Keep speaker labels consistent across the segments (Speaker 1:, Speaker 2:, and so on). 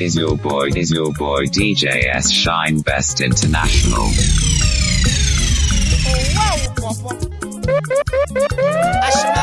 Speaker 1: is your boy, is your boy DJ S Shine Best International.
Speaker 2: Oh, wow,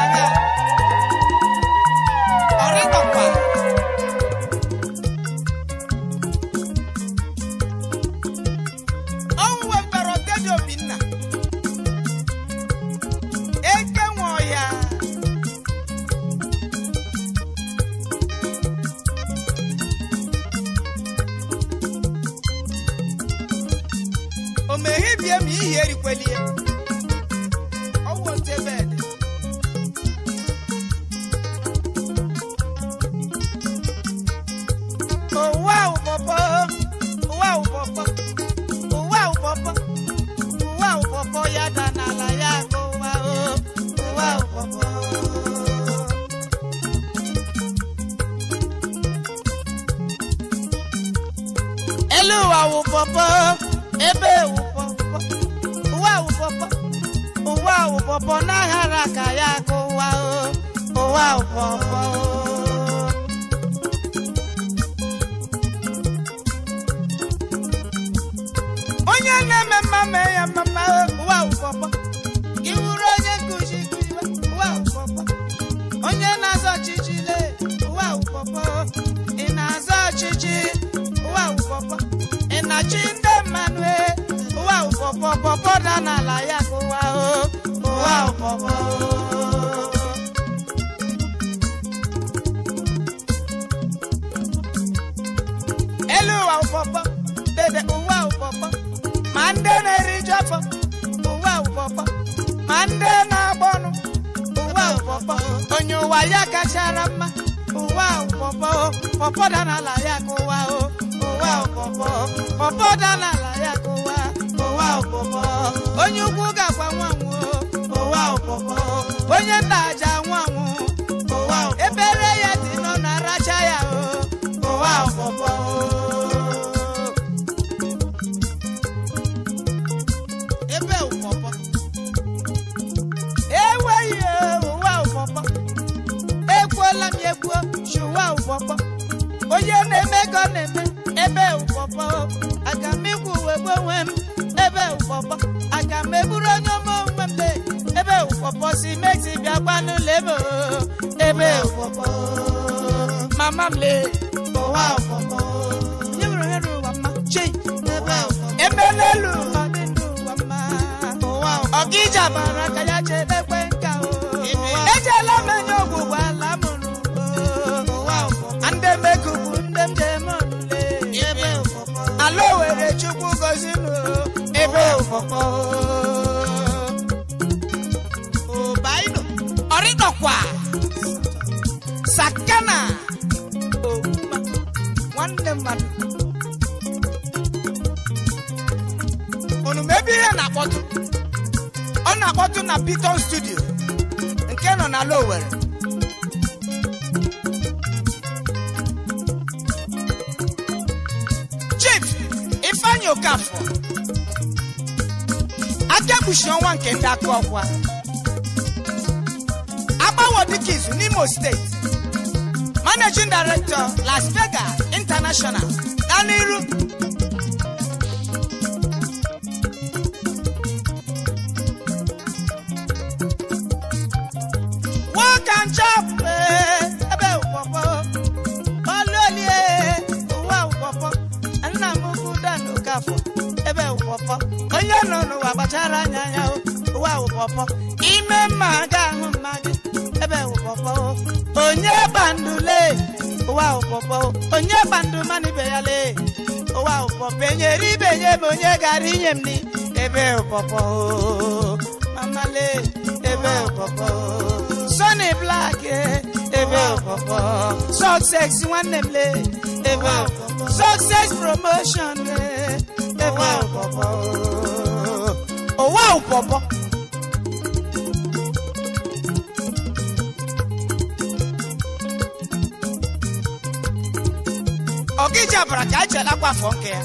Speaker 3: devotion rẹ̀ owó àpọ̀pọ̀ owó àpọ̀pọ̀. ọ̀gíjà bàràkà jẹ́ lápá fọ́nkẹ́.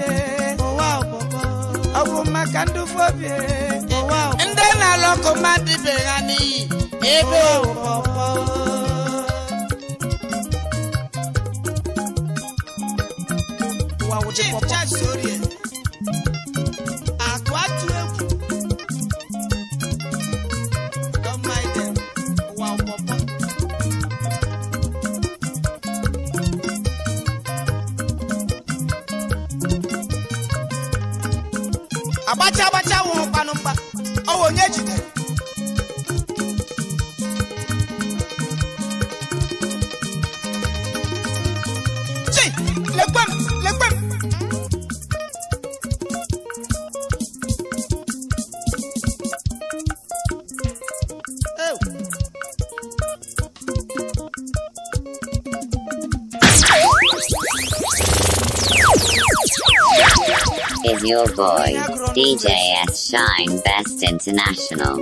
Speaker 3: fobie, owa obobo. Owu makandu fobie, Wow! obobo. Ndị na-alọkọ mmadụ ibe ha n'iyi, Wow! obobo. Chief Judge Sorie.
Speaker 1: DJ S Shine Best International.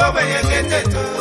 Speaker 3: bobo yekete tu.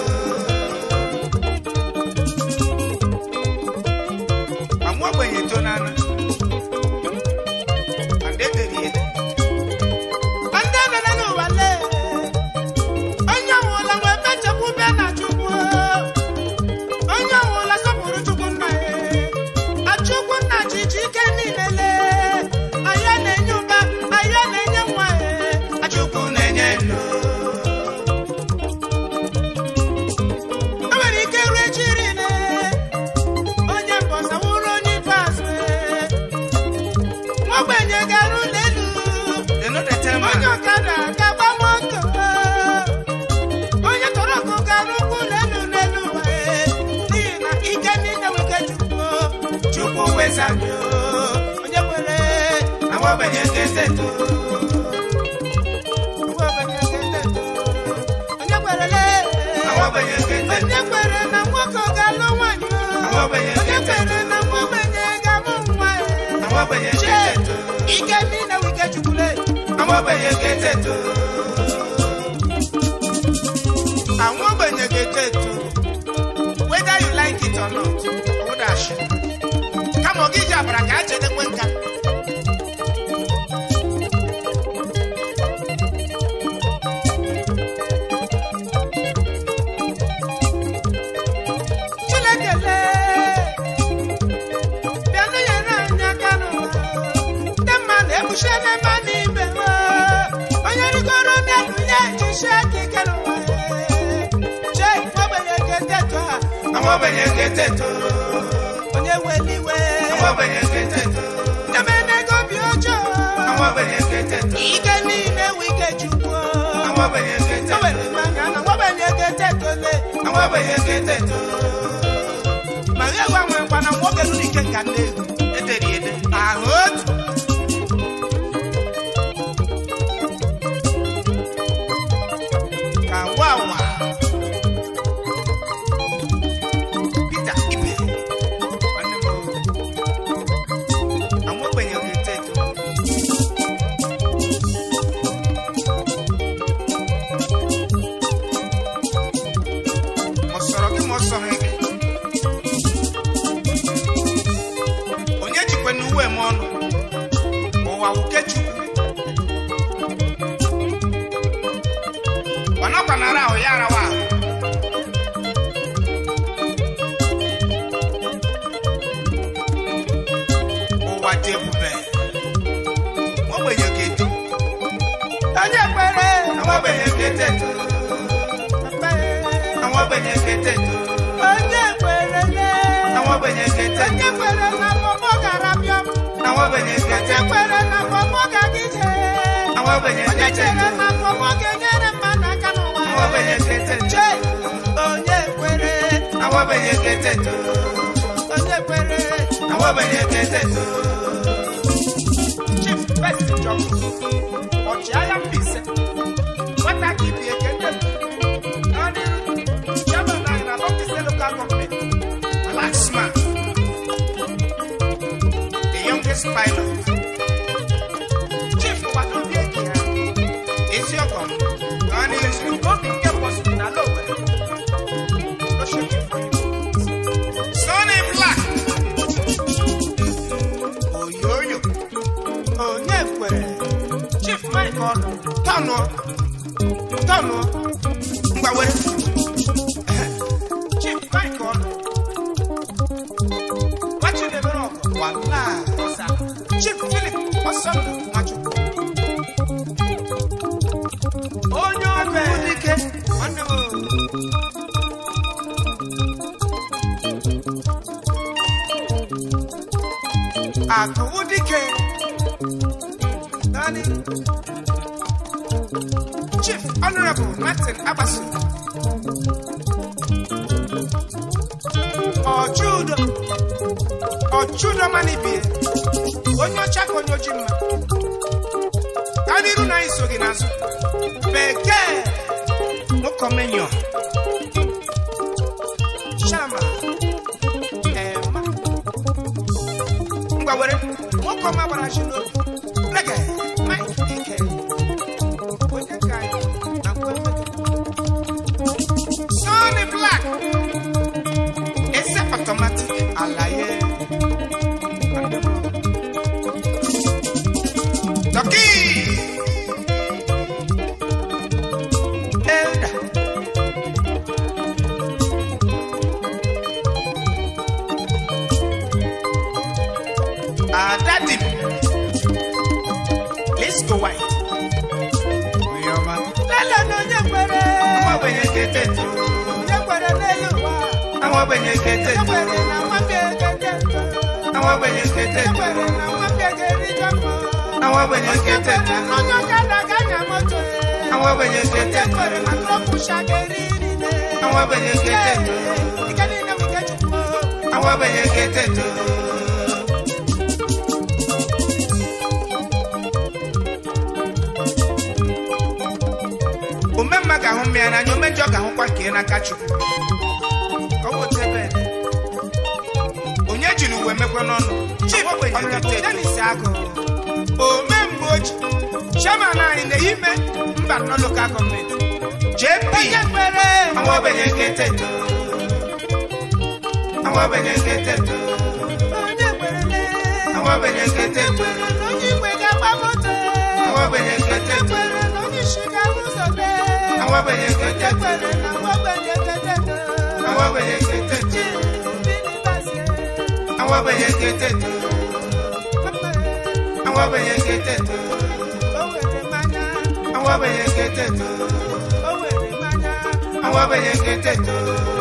Speaker 3: àwọn gbẹ̀yìn kété àwọn gbẹ̀yìn kété àwọn gbẹ̀yìn kété àwọn gbẹ̀yìn kété àwọn gbẹ̀yìn kété àwọn gbẹ̀yìn kété. umemma ga ahụ mmịa n'anya umejọ ga ahụkwa ka ị n'aka chukwu na-emekwa n'ọnụ chibọdenisi na ime mba jp kété tó kété tó kété tó tó tó tó. Awa ba yekete tu. Awa ba yekete tu.
Speaker 2: Awa ba yekete tu. Awa ba
Speaker 3: yekete tu.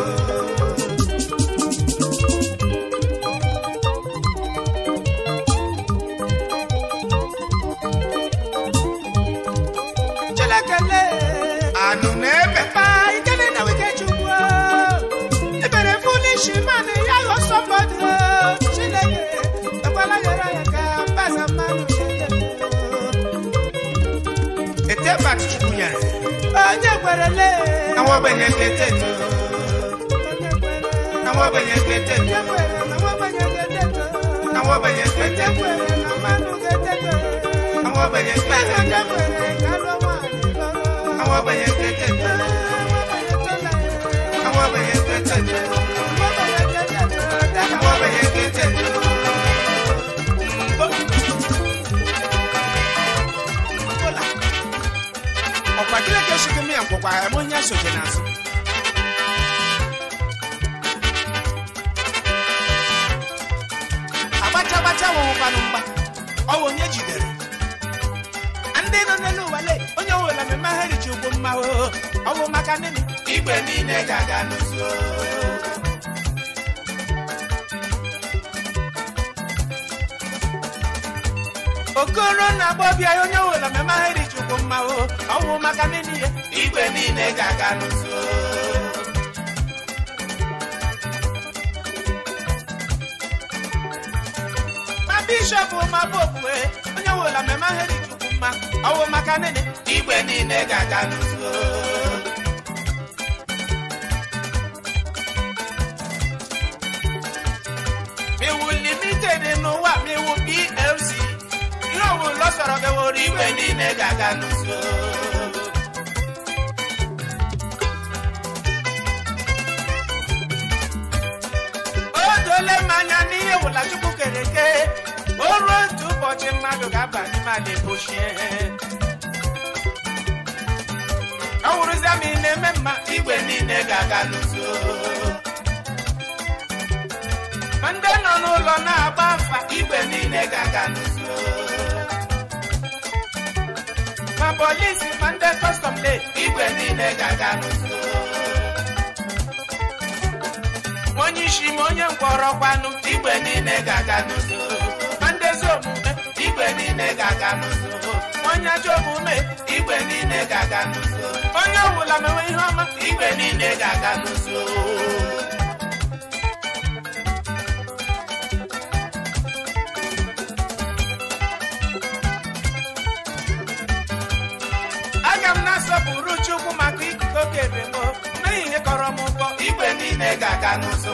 Speaker 3: na wọ́n bẹ̀yẹ̀ gẹ̀dẹ̀ nù. na wọ́n bẹ̀yẹ̀ gẹ̀dẹ̀ nù. na wọ́n bẹ̀yẹ̀ gẹ̀dẹ̀ nù. na wọ́n bẹ̀yẹ̀ gẹ̀dẹ̀ nù. na wọ́n bẹ̀yẹ̀ gẹ̀dẹ̀ nù. chịkị mịa ngwụkwa ha eme onye sochi n'azụ agbacha agbacha wụwụkwanụ mgba ọwụ onye oh, jidere ndị nọ mma ọnwụ maka n'ihi ya igwe niile ga-aga n'ụzọ ma bishọp ma popu e, onye wela mmemme ahịrị chukwu mma ọnwụ maka n'ihi igwe niile ga-aga n'ụzọ miwu limited n'ụwa miwu plc ihe ọwụ lọsọrọ beworo igwe niile ga-aga n'ụzọ kere o ruo otu ụbọchị mmadụ ga-aba n'ime ala epochie awụrụzia ma ị na-eme mma igwe niile ga-aga n'ụzọ ma ndị nọ n'ụlọ na-agba afa igwe niile ga-aga n'ụzọ ma polisi ma ndị kọstọm le igwe niile ga-aga n'ụzọ m onye mkpọrọkwanụ igwe niile ga-aga n'udo ma ndezi omume igwe niile ga-aga n'udo onye ajọ omume igwe niile ga-aga n'udo onye ọbụla mewe ihe ọma igwe niile ga-aga n'udo aga m na-asọpụrụ Chukwu maka ikuku ebe ebemo mee ihe kọrọ m ụkọ igwe niile ga-aga n'udo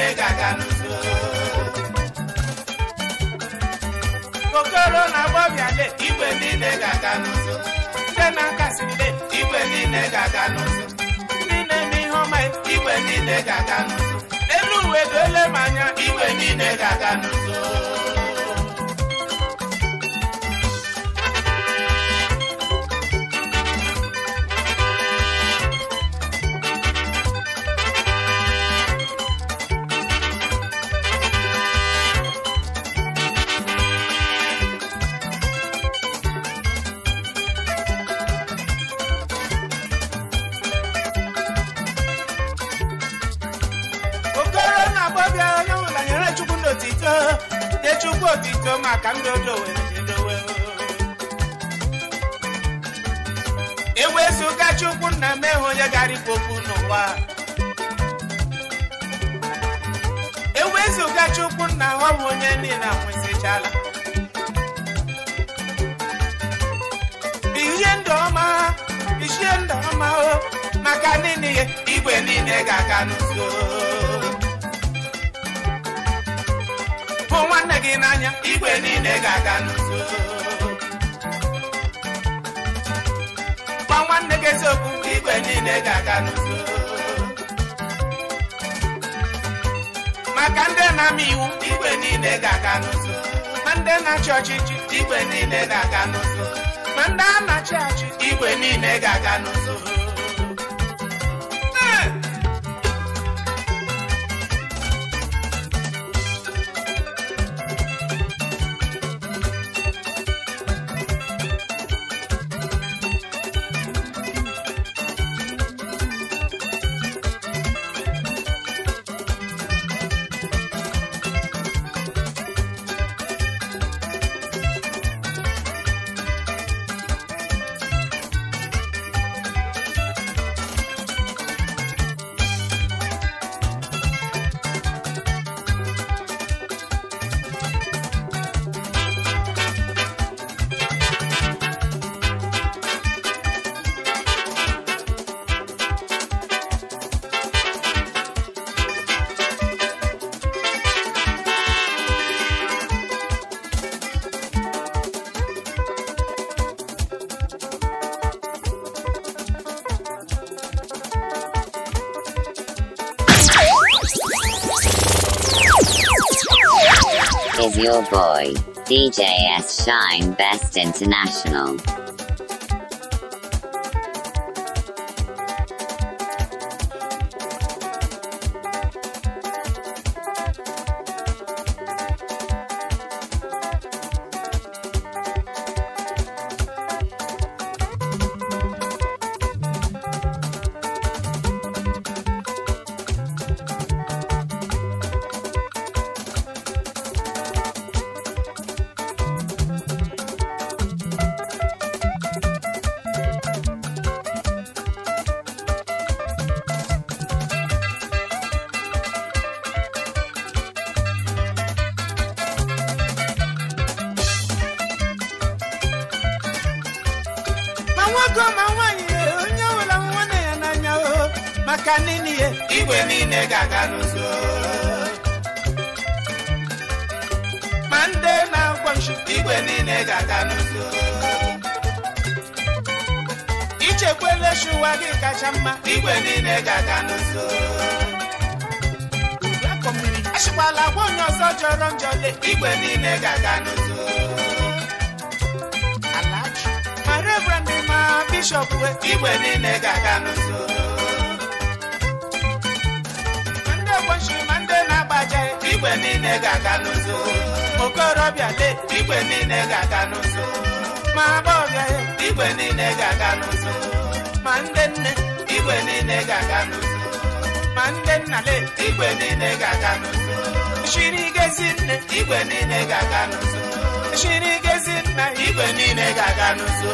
Speaker 3: niile ga-aga n'udo okoro na gbọbiale igwe niile ga-aga n'udo ndị na-akasile igwe niile ga-aga n'udo ndị na-eme ihe ọma igwe niile ga-aga n'udo elu uwe ga-ele m anya igwe niile ga-aga n'udo obi iko maka ndị odowe dowe ewezuga chukwu nna m ehu onye ga okwu n'ụwa ewezuga chukwu nna ọ bụ onye niile Chala. ihe ndụ ọma bishie ndụ ọma oh, maka niile igwe niile ga-aga n'uzo gị n'anya igwe niile ga-aga n'uzo gwa nwanne gị eziokwu igwe niile ga-aga n'uzo maka ndị na-ama iwu igwe niile ga-aga n'uzo ma ndị na-achị ọchịchị igwe niile ga-aga n'uzo ma ndị a na-achị achị igwe niile ga-aga n'uzo
Speaker 1: Boy, DJS Shine Best International.
Speaker 3: ga-aga n'ụzọ chiri gezi nna igwe niile ga-aga n'ụzọ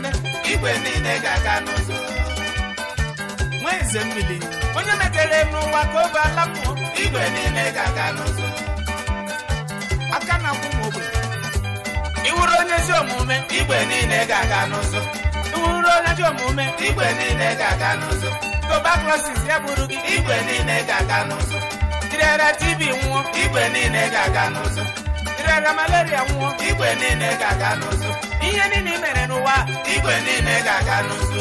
Speaker 3: na igwe niile ga-aga n'ụzọ nweze mmiri onye n'ụwa ka obe alapụ igwe niile ga-aga n'ụzọ aka na-akwụ m ogbe onye ezi omume igwe niile ga-aga n'ụzọ bụrụ onye ajọ omume igwe niile ga-aga n'ụzọ tuberculosis ya bụrụ gị igwe niile ga-aga n'ụzọ jirera TB nwụọ igwe niile ga-aga n'ụzọ jirera malaria nwụọ igwe niile ga-aga n'ụzọ ihe niile mere n'ụwa igwe niile ga-aga n'ụzọ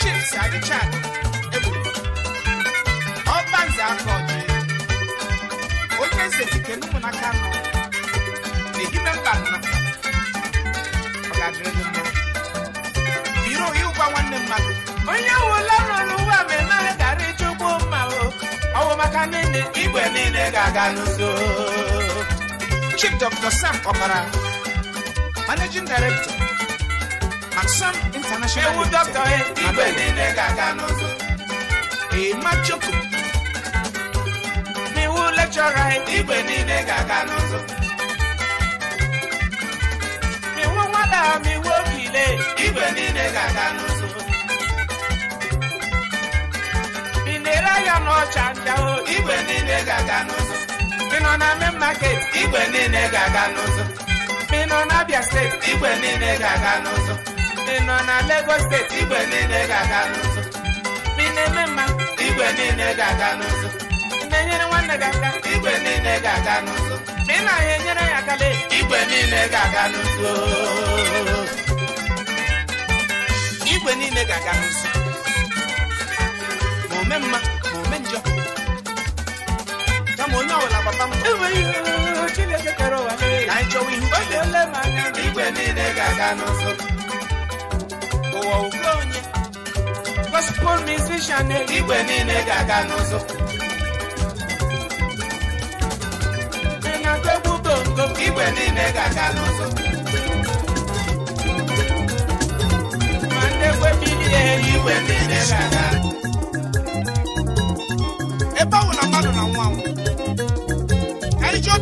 Speaker 3: chips adịcha egburu ọbanze aka ọjị onye eze dike n'ụmụnaka nọ na-ehime mba nọ ọ ga-adịrị gị mma nwanne mmadụ onye wụla rụrụ ụwa ma emeghị gara ịchụkwu mma ọwụ maka niile igwe niile ga-aga n'udo Chief Dr. Sam Okpara Managing Director Maxim International ewu dọkịta igwe niile ga-aga n'udo Ema Chukwu n'iwu lekchọra igwe niile ga-aga n'udo iwu nwada ma iwu okile igwe niile ga-aga n'udo ele anya n'ọcha ndị ahụ igwe niile ga-aga n'ụzọ ị nọ na main market igwe niile ga-aga n'ụzọ ị nọ na Abia steeti igwe niile ga-aga n'ụzọ ị nọ na Lagos steeti igwe niile ga-aga n'ụzọ ị na mma igwe niile ga-aga n'ụzọ ị na-enyere nwanne gị aka igwe niile ga-aga n'ụzọ ị na-ahịa enyere ya aka igwe niile ga-aga n'ụzọ igwe niile ga-aga n'ụzọ ome mma ma ome njọ kama onye ọbụla papa m na ịchọwa ihe niile igwe niile ga-aga n'ụzọ ụwa ugwe onye gospel musician igwe niile ga-aga ị na-agụ egwu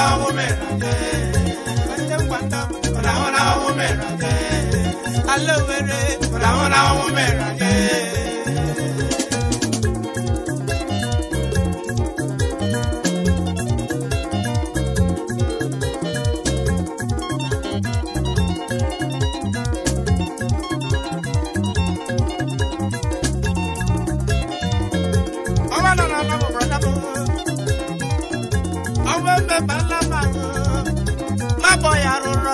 Speaker 3: hola woman hola hola woman hola hola woman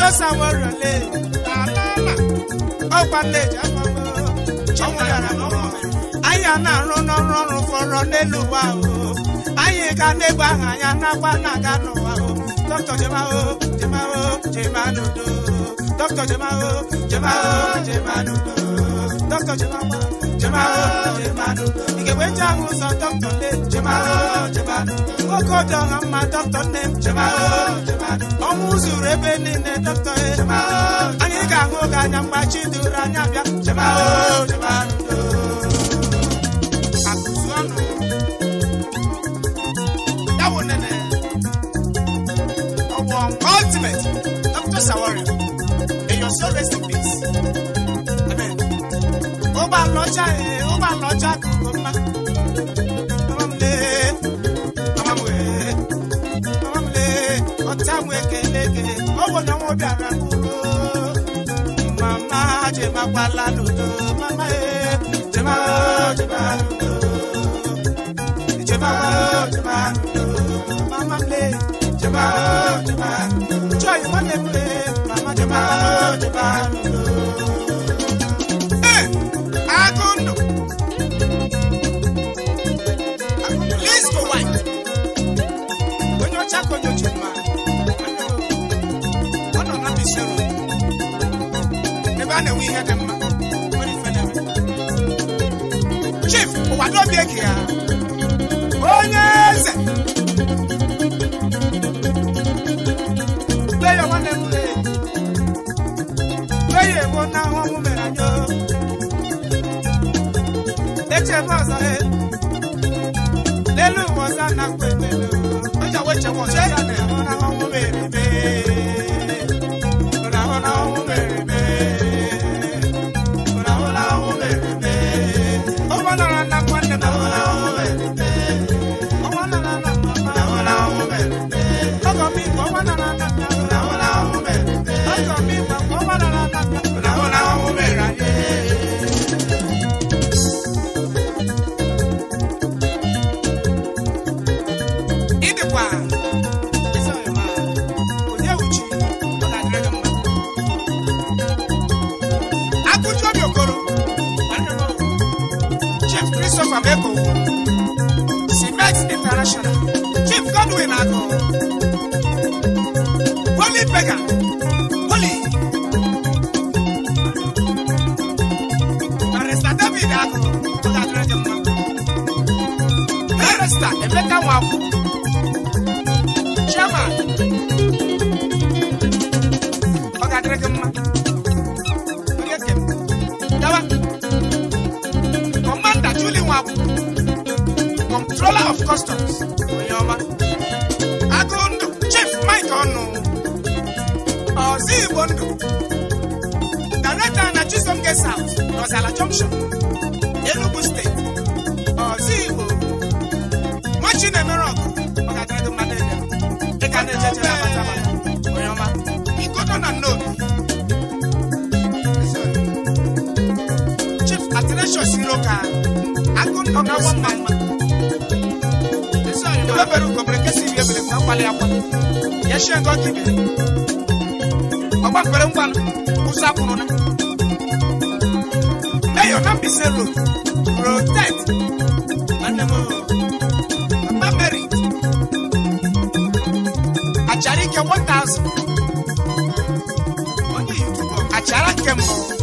Speaker 3: Just warale alala ọkwa nneji afọmọ ọnwa yara n'ọnwa anyị na-arụ n'ọrụ ọrụ fọrọ n'elu ụwa o anyị ga n'egwu ahụ anya n'akwa na-aga n'ụwa o dọkịta jemao jemao jemanodo dọkịta jemao jemao jemanodo Doctor jemao jemao jemanodo ị ga-enwecha ahụ ụzọ dọkịta nne jemao jemanodo nwoke ọdị ọha mma dọkịta nne jemao omuzi urebe nine tọtọ ye anyị ga-ahụ ga anya mgbachi duru anya bịa chema o chema ndo akụzu ultimate dr sawari may your soul rest peace amen ụgbọ alọcha eh, ụgbọ gara kudo mama jema kwala dodo mama e jema jema dodo jema jema dodo mama play jema jema joy money play mama jema jema dodo ihe dị mma nwere ife chief ụwa n'obi eke here. onye eze lee ya nwanne m lee lee ya egbo na ahụ ọnwụ mere anyị echebe ọzọ he n'elu ụwa a na-akpọ ebe elu from Èkó Cement International Chief Godwin Ago Holy Beggar Holy Barrister David Ago Barrister Emeka Nwankwo. junction Enugu steeti ọzọ Igbo machi na-emere ọgụ maka dịrịdị mmadụ ebe dịka na-echechere abata abata onye ọma igodo na nnobi Chief Athanasius Nwoke agụọgagwọ mma mma ebebere ugobere nke si iri ebere na mkpali akwa ya shie ngo kibere ọgba mkpere ngwa ụzọ akwụrụ na your ambition road protect anamọ papa mary Acharike one thousand ọdún yìí túbọ̀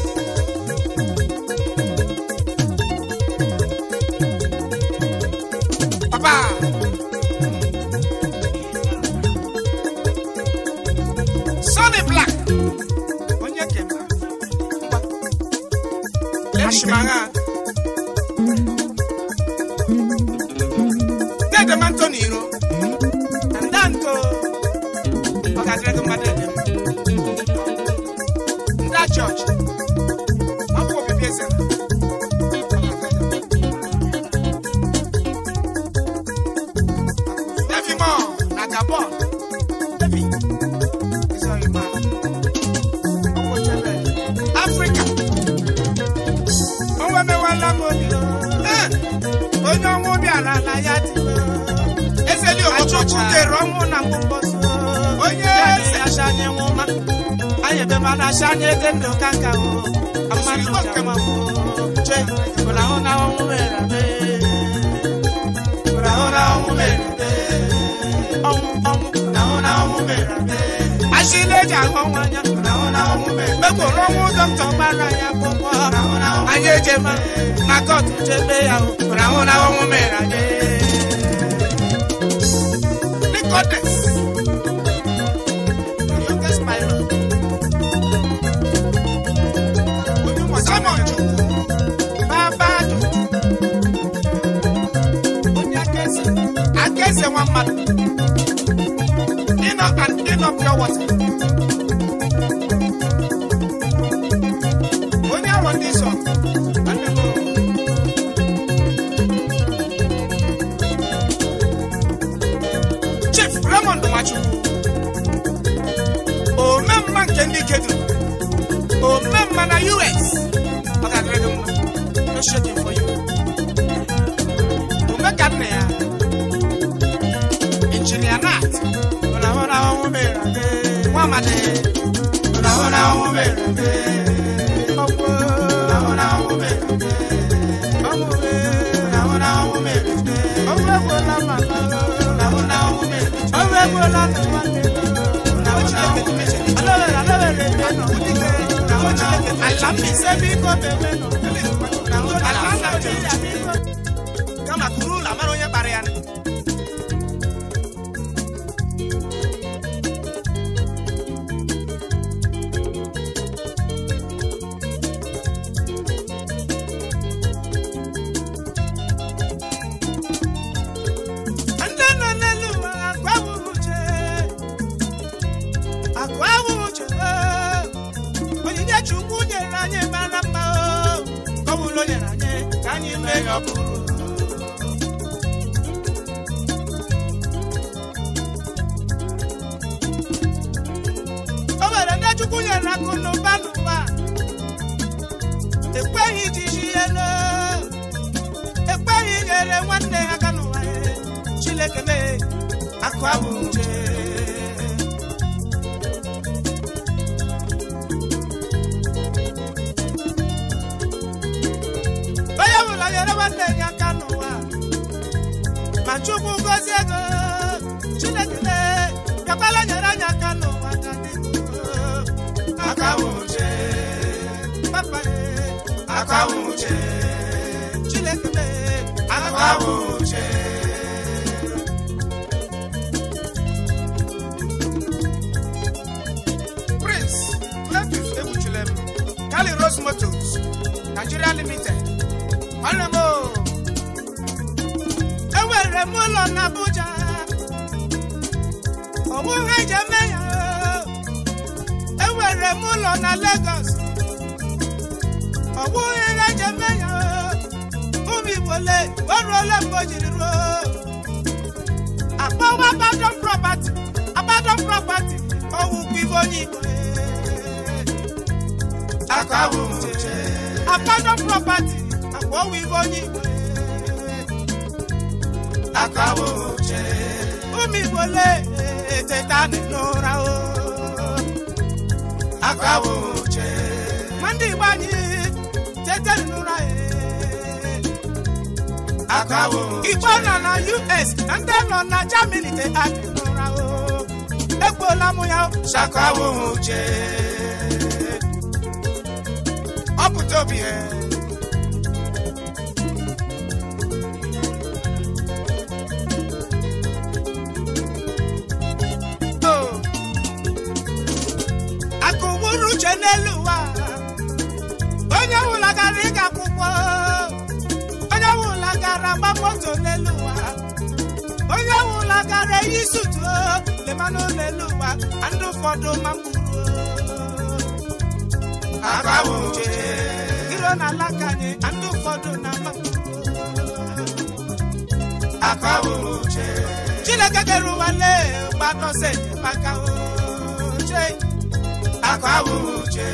Speaker 3: E nwere m ụlọ na Abuja onweghị ji eme ya enwere m ụlọ na Lagos onweghị ihe ji eme ya ụmụ Igbo le oruola mgbe o jiri ruo akpọwa Abadọ property Abadọ property ọwụ onye Igbo akpọwa ibe onye Igbo akawo oche ụmụ igbo teta eteta n'ụra o akawo oche ndị igbo eh. anyị tete n'ụra eh. akawo oche igbo eh. nọ na US na ndị nọ na Germany teta n'ụra o egbuola m ya shakawo oche ọ pụta obi gara ịga onye ọwụla gara agba moto n'elu ụwa onye ọwụla gara eyi sutu lemanụ n'elu ụwa ndị ụfọdụ ma iro na alaka anyị ndị ụfọdụ na chineke kere ụwa lee gbatọse maka uche.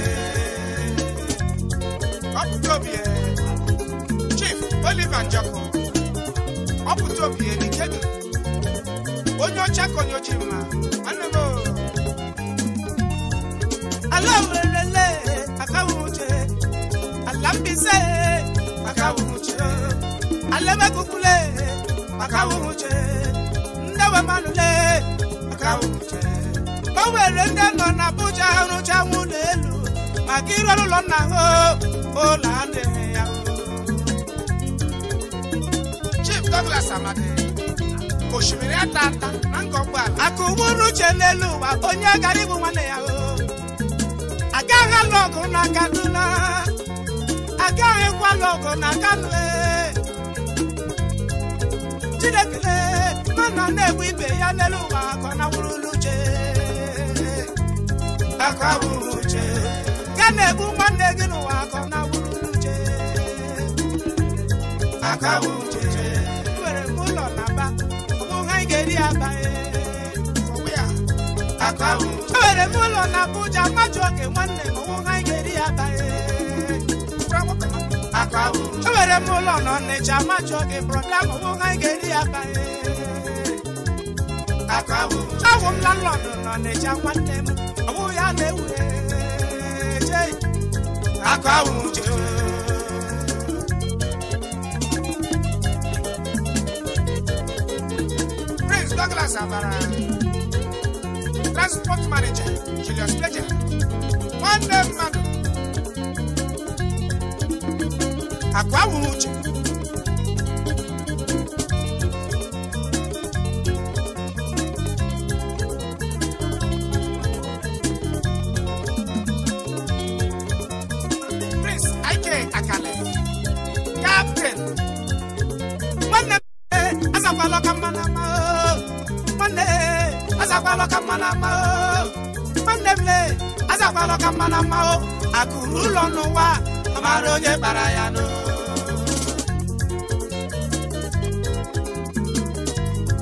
Speaker 3: ọpụtobie Chief Oliver Njoko ọpụtobie Nikedu onye ọcha ka onye ochie mma anụrụ ala werelele akawuruche ala mbise akawuruche ala emekukule akawuruche ndewemmanụle akawuruche o nwere ndị nọ na Abuja rụcha nwụ n'elu maka ire ụlọ nna ha oh, oh, ụlọ adịghị ya Chief Douglas Amadi osimiri ata ata na nga ụgbọala aka ugburu uche n'elu ụwa onye gara ịbụ nwanne ya oh. agaghị alụ ọgụ na Kaduna agaghị kwalụ ọgụ na Kano e. Chineke mana na-egbu ibe ya n'elu ụwa ka na nawụrụ uche aka bụrụ uche nwanne gị nwanne gị n'ụwa akawu uche were ụlọ na-aba ụmụ ha ga-eri aba ewere m ụlọ na Abuja mmadụ oge nwanne m ụmụ ha ga-eri aba ewere m ụlọ na Ọnịcha mmadụ oge brọda m ụmụ ha ga-eri aba awụ m landlọd na Ọnịcha nwanne m ọwụ ya akọ awụ uche Prince uche ọlọka mmanụ mma o akụrụ ụlọ n'ụwa amara onye kpara ya nụ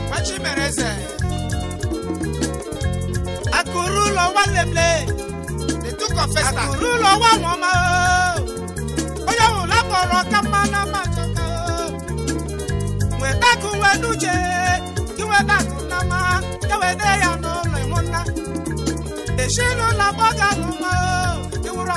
Speaker 3: machimereze akụrụ ụlọ nwa ụlọ akụrụ ụlọ nwa nwọma onye ụlọ akpọrọ ọka mmanụ mma chọka nweta akụ nwe n'uche gị nweta akụ na mma ewede ya n'ụlọ ịmụnna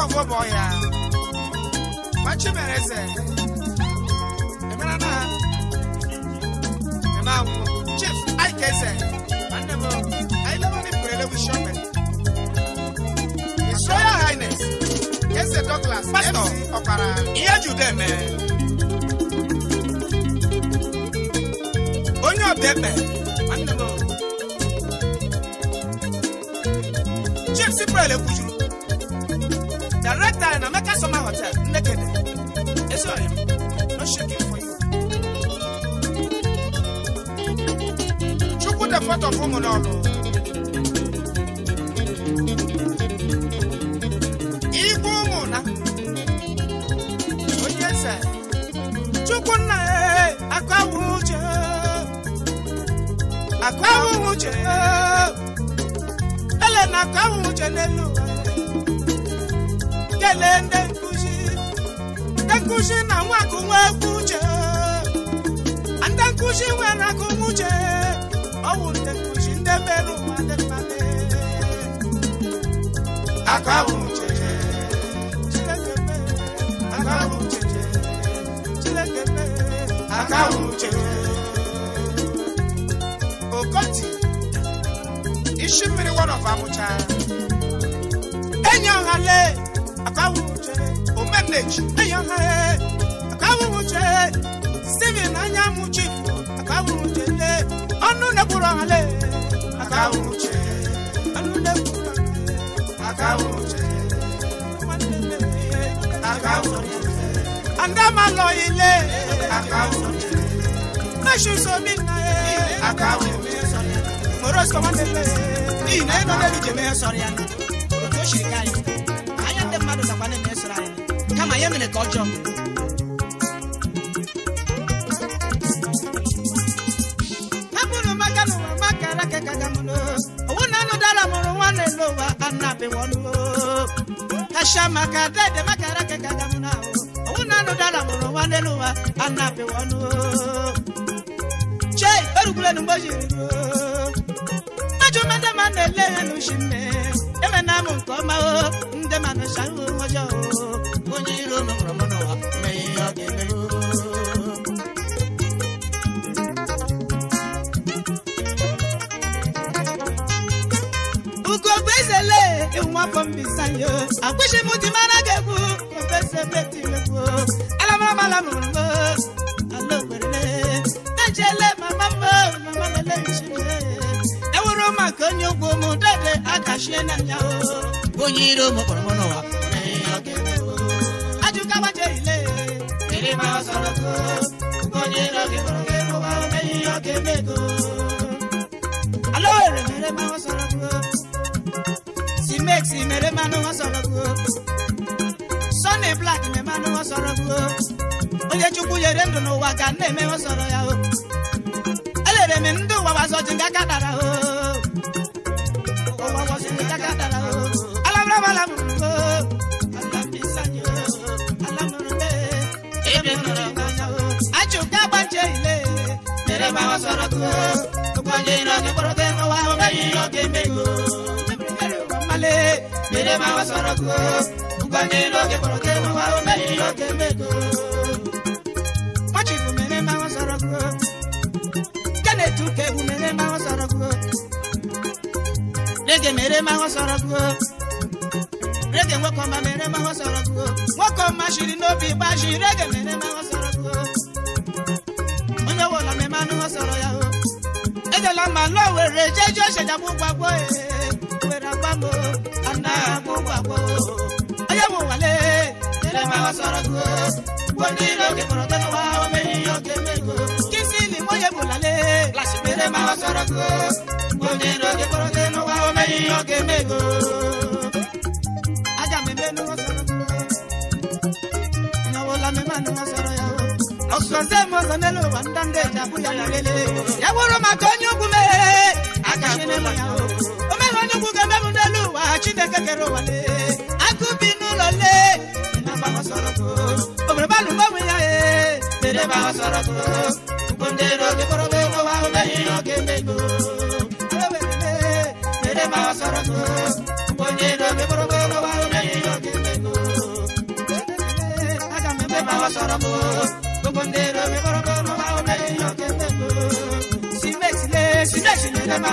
Speaker 3: nkɔfoɔ bɔ ɔyɛ a wakye mɛrɛ sɛ ɛmɛra na ɛma wo chief ayike sɛ mandɛmɔ ayilama ne pɛrɛlɛ wi shɔpɛ his royal highness the douglas pastor ɔkwara iye ju dɛ mɛ onye ɔbɛ mɛ mandɛmɔ chief si pɛrɛlɛ wi summer hotel, naked. It's all you. Not shaking for you. You put a photo from an auto. Chukwunna eh, akwa wuche akwa wuche ele na akwa wuche n'elu eh. kele ndị nkụzi na nwakụ nwekwu uche ndị nkụzi nwere akụmuche ọ bụ ndị nkụzi ndị mere ụwa dị mma aka bụ okoti isi mmiri wọrọ fa mụcha enye ọhale aka uche bondage ayọha akawuruche simin anya muchi akawuruche le ọnụ nekwuru ọhale akawuruche ọnụ nekwuru akawuruche akawuruche andamalọ ile akawuruche kashi somi na ye akawuruche ị na-enọ n'elu jeme mere ka ọjọọ hapụrụ maka na maka owu n'ụwa maka dede maka alaka na anụ mụrụ mgbe jiri ajụ mmadụ ma na-ele ya n'ushi na amụ nke ọma ndị nwaafọ mbisanye akwụsị m ti mara gị egwu I'm alamarabala mụrụ m ala okwerele ejele mama m mama lele nchime ewuru maka onye ụgwọ m dede akachie n'anya onye iro m kpọrọ m n'ụwa ajụka gbaje ile iri ma ọ sọrọ onye iro gị kpọrọ gị n'ụwa omeyi ọ ga-eme ego ala owere mere ma ọ sọrọ Alexi mere ma no wọn sọ̀rọ̀ bu o Sunny Black mere ma no wọn sọ̀rọ̀ bu o Onyechukwu yere ndụ n'ụwa ka nne eme wọn sọ̀rọ̀ ya o elere m ndị ụwa wasọchi nga ka dara o ụwa wasọchi nga ka dara o alabra malam o alamisanyo alamurube ebe nọrọ mmanya o achụka agbache ile mere ma wọn sọ̀rọ̀ bu o ụgbọ ndị nọ onye n'oge oge mere sọrọ ebu mere rege mere nwoke ọma mere ma sọrọ kụọ nwoke ọma shiri n'obi gbaji rege mere ma sọrọ kụọ onye wụlọ memanụ ọ sọrọ ya o ejela mma were gbagbo ee i ana mugwago aya muwale the mawa chineke kere ụwa le agụ bi balụ e mere ba ọsọrọgo ugbo ndị n'oge mere ba ọsọrọgo ugbo ndị n'oge kpọrọbe nwa omeghị n'oge aga si mexile si mexile ebe ba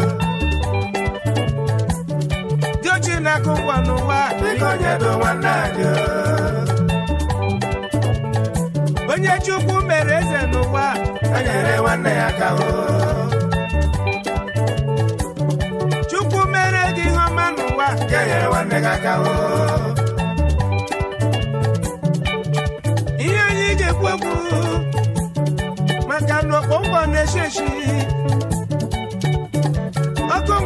Speaker 3: na-akụ ngwa n'ụwa onye chukwu mere eze n'ụwa chukwu mere gị ihe ọma n'ụwa ihe anyị ga-ekwu okwu maka na okpongbo na-eshi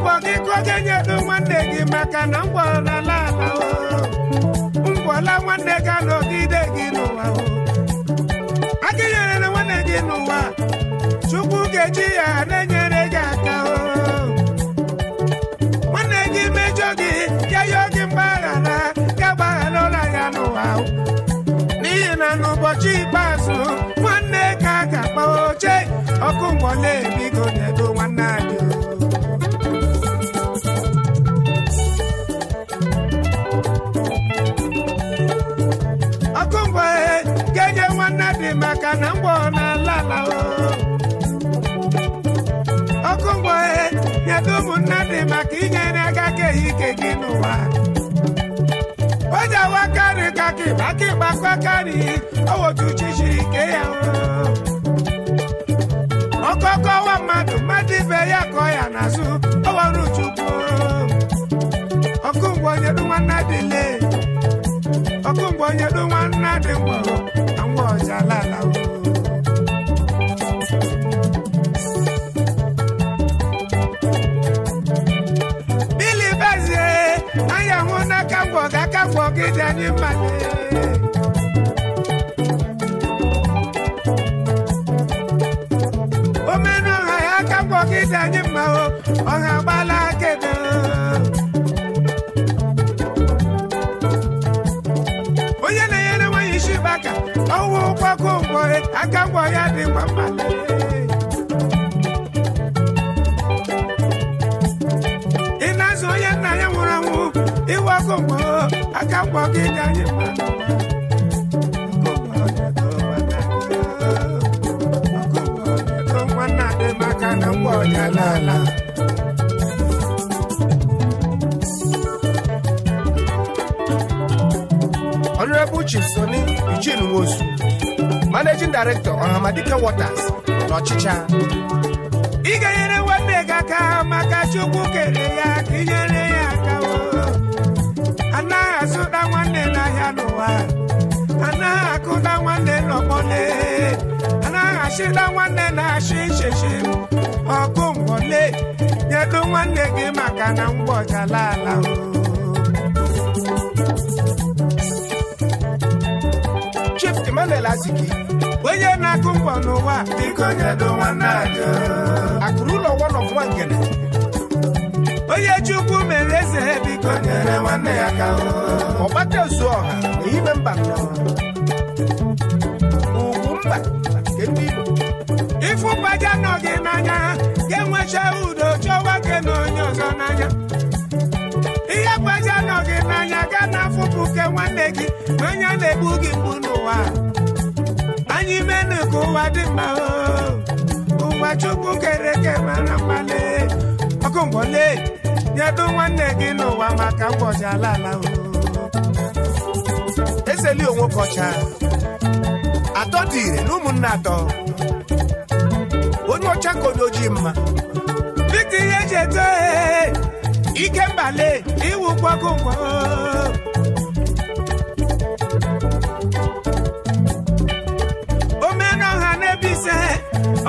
Speaker 3: ụbọchị kwoke nyedo nwanne gị maka na mgbọlala ala mgbọla nwanne ga nọgide gị n'ụwa akenyere na nwanne gị n'ụwa chukwu ga-eji ya na-enyere gị aka nwanne gị mejọ gị keyo gị mgbaghara gagbaghara ụra ya n'ụwa n'ihi na n'ụbọchị ikpeazụ nwanne ka ga-akpa oche ọkụ mgbọla ebigo nyedo nwanne anyị inyere aka keghị ike gị n'ụwa o ji awa karị ka kịba kịba kwakarị owotuchi chiri ike ya ọkọ ọkọkọwa mmadụ mmadụ ibe ya kọ ya n'azụ owere chukwu ọkụ mgbe onye dị nwanna dịle ọkụ mgbe onye dị nwanna dị mgbọrọ na mgbe ọjalala dị ọha ya aka mgbe anyị mma ọha onye na-enyere nwanyị isi baka ọwụ ụkwakọ ụgbọ aka mgbe ya dị mma mma ị na-azụ onye nna ya nwụrụ anwụ iwe ọkụ mgbe aka gwọ gị ka ala soni ijin nwosu director ọhamadike waters n'ọchịcha ị ga nwanne gị aka maka chukwu kere ya ka inyere A na akụda nwanne A na achịda nwanne na-achị ichechi ọkụ mbọle nyedo nwanne gị maka na mgbọjala ala Chief Emmanuel Aziki onye na-akụ mgbọ n'ụwa biko nyedo nwanne anyị akụrụ ụlọ one of one gele onye Chukwu mere eze biko nyere nwanne ya ka Ọbata ezu ọha na ime mba ugwu mba nke ndị Igbo ifụbaja nọghị n'anya ga-enwecha udo chọwa gị na onye ọzọ n'anya ihe gbaja anọghị n'anya ga na-afụpụ ke nwanne gị ma anya na-egbu gị mgbu n'ụwa anyị menu ka ụwa dị mma ụwa chukwu kere eke mara mmalị ọkụ ngwọle nyedo nwanne gị n'ụwa maka mgbọji ala ala iseli onwe kọcha atọ dị ire na ụmụnne atọ onye ọcha ka onye ojii mma dịka ihe eji eto e, ike mbale iwu gwago ngwa omena na-ebe ise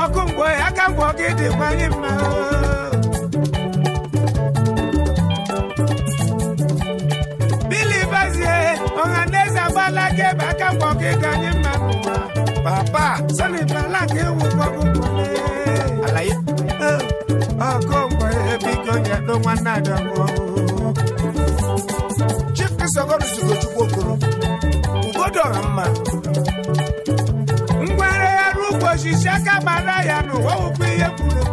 Speaker 3: ọkụ mgbe aka ngwọ gị dịkwanye mma aka mgbe ọka ịga anyị mma n'ụwa papa sani ala ka ewu gbagbukwule alaye ọkụ mgbe ebigo nyedo nwanne adọgbu chief esogoruzugo chukwu okoro ugodo ọha mma ngwere ya n'ugbo osisi aka gbara ya n'ụwa wụkwa ihe kwuru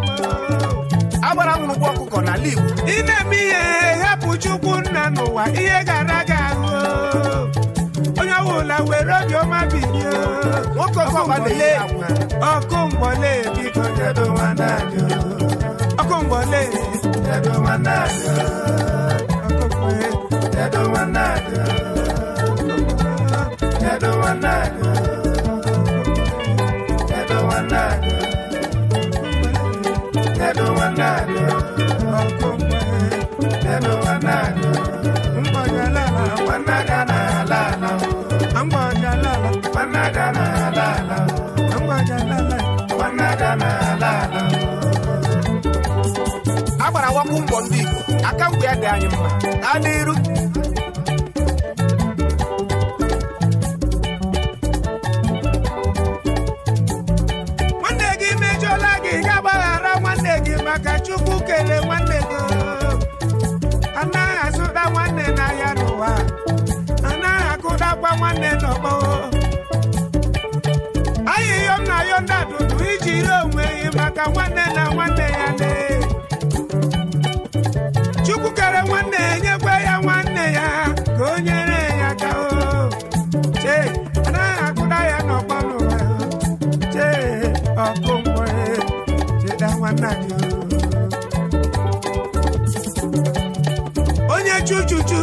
Speaker 3: agbara nwụrụ ụgwọ ọkụkọ n'ala igbo ị na-eme ihe hapụ chukwu nna n'ụwa ihe gara wèrè ni ó má bì ní o. wọ́n kọ́ fọ́mọlé ọkọ̀ ń wọlé bí kan jẹ́dọ̀ wọn náà ni o. ọkọ̀ ń wọlé jẹ́dọ̀ wọn náà ni o. ọkọ̀ ń wọlé jẹ́dọ̀ wọn náà ni o. jẹ́dọ̀ wọn náà ni o. jẹ́dọ̀
Speaker 2: wọn náà ni o. jẹ́dọ̀ wọn náà ni o. ọkọ̀ ń wọlé
Speaker 3: jẹ́dọ̀ wọn náà ni o. ń bọ̀ yẹn lára wọn náà. ọkụ ụgbọ ndị Igbo aka mgbe ya dị anyị mma gaa n'iru nwanne gị mejọla gị ga gbaghara nwanne gị maka Chukwu kelee nwanne gị anaghị azụda nwanne n'ahịa n'ụwa anaghị akụdakwa nwanne n'ọgbọ ayịyọm na yọnda dudu iji ire onwe gị maka nwanne nanyị onye chuchuchu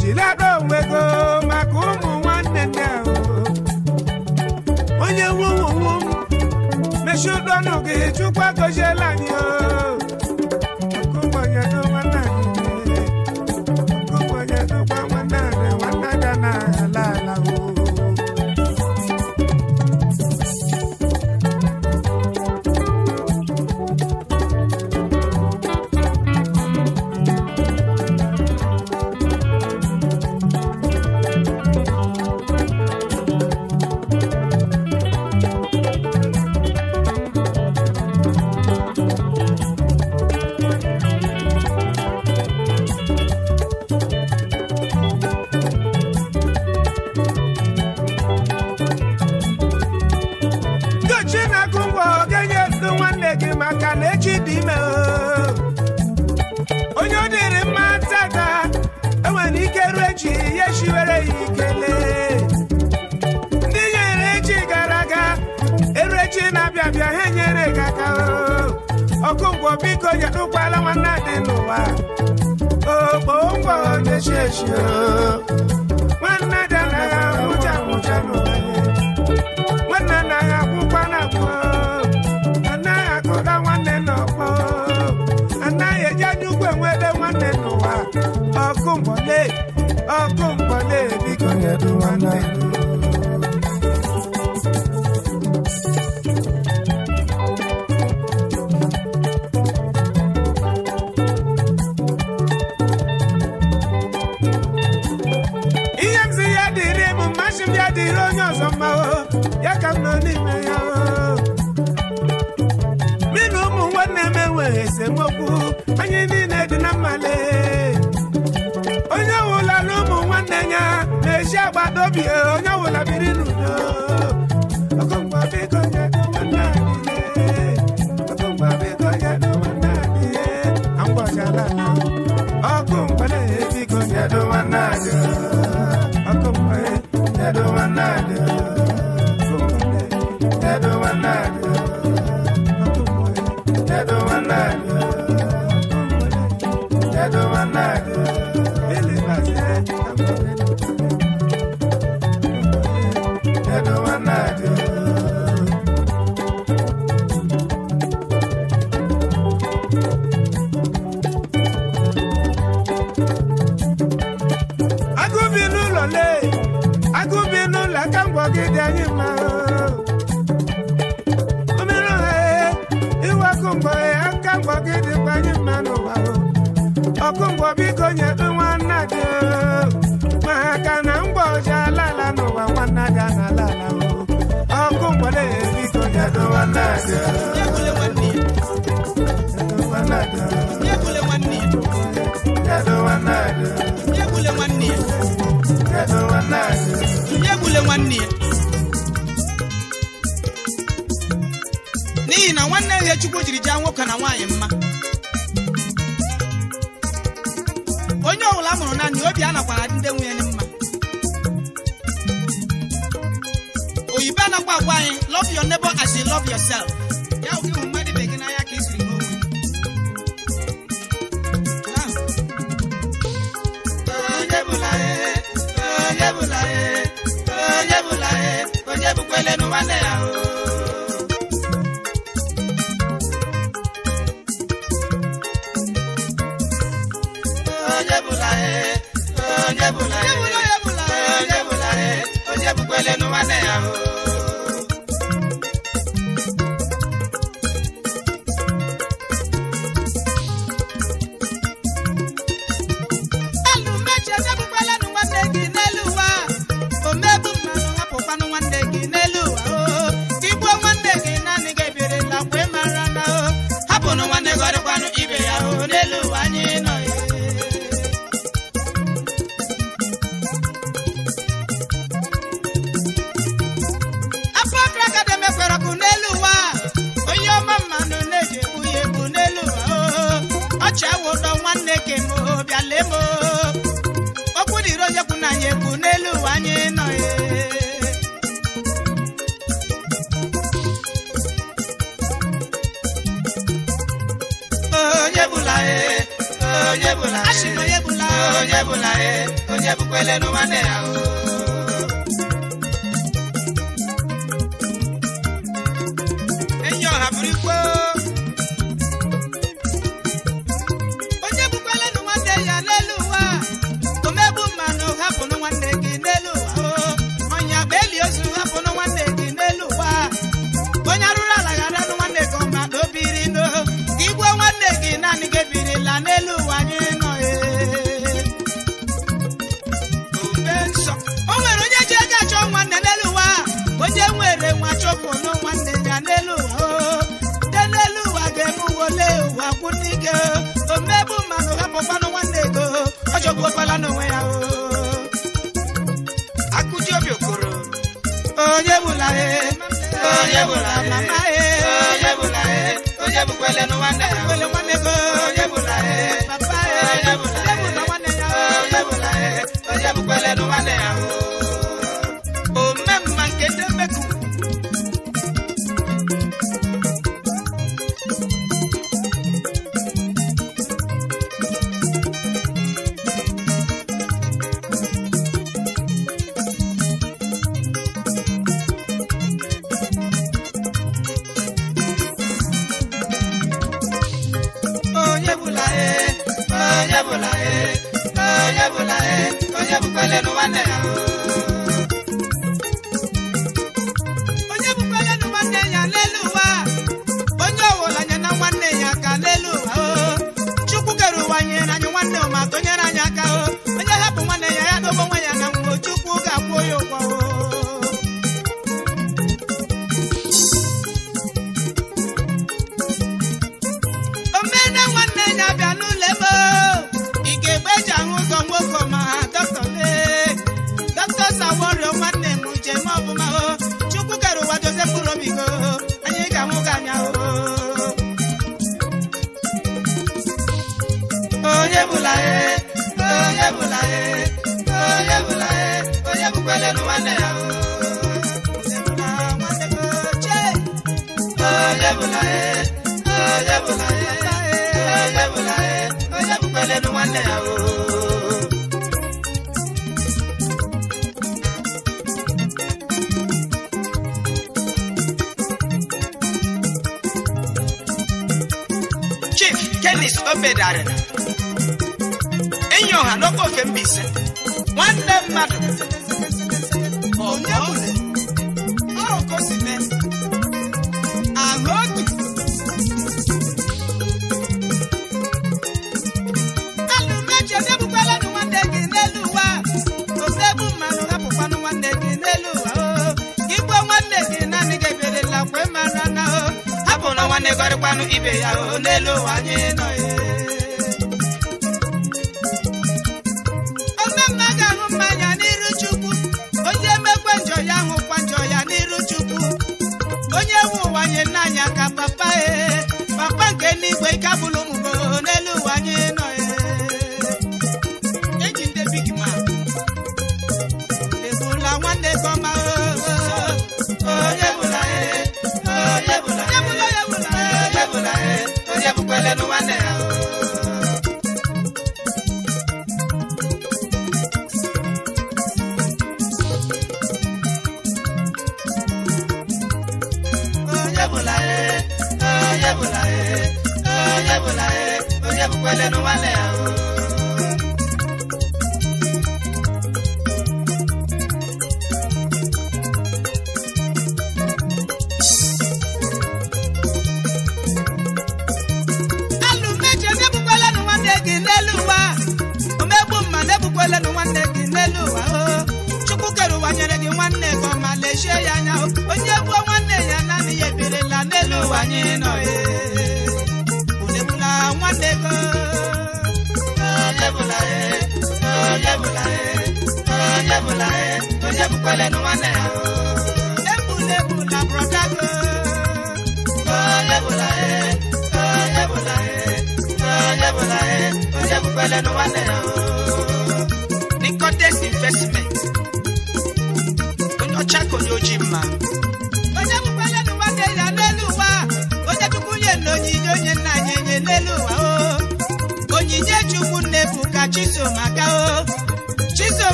Speaker 3: jilada get go maka ụmụ nwanne nne onye nwuwuwu mechie chukwa biko nyetukwala nwanne dị n'ụwa okpo ụgwọ na-echi nwanne dị anaghị agwụcha agwụcha n'ụwa nwanne anaghị agwụkwa na agwụ anaghị akụda nwanne n'ọkpọ anaghị eji anya ugwu enwede nwanne n'ụwa ọkụ mgbọle ọkụ mgbọle biko nyetu nwanne Yeah.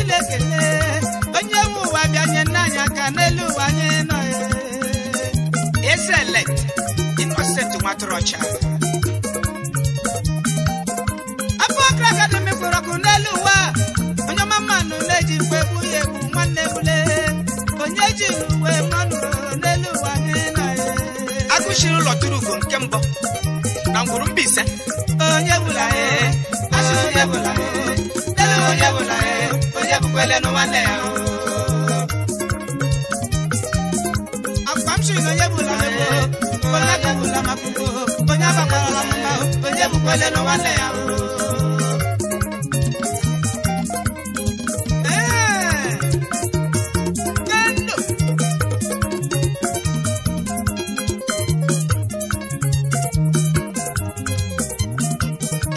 Speaker 3: Chineke onye nwe ụwa bịa nye nna anyị aka n'elu ụwa anyị nọ Ezelet Innocent Nwatụrụọcha Abubakar Academy kpọrọ ọkụ n'elu ụwa onye ọma mmanụ na-eji mgbe egbu ya egbu nwanne bule onye ji uwe mmanụ n'elu ụwa anyị nọ agụchiri ụlọ tụrụ ugo nke mbụ na ngwuru Mbaise onye bụla e, asụsụ ya bụla n'elu onye bụla e, ekele akpa m chiri onye bụla onye ga onye agbakwara mba onye bụkwele n'ụmụnne ya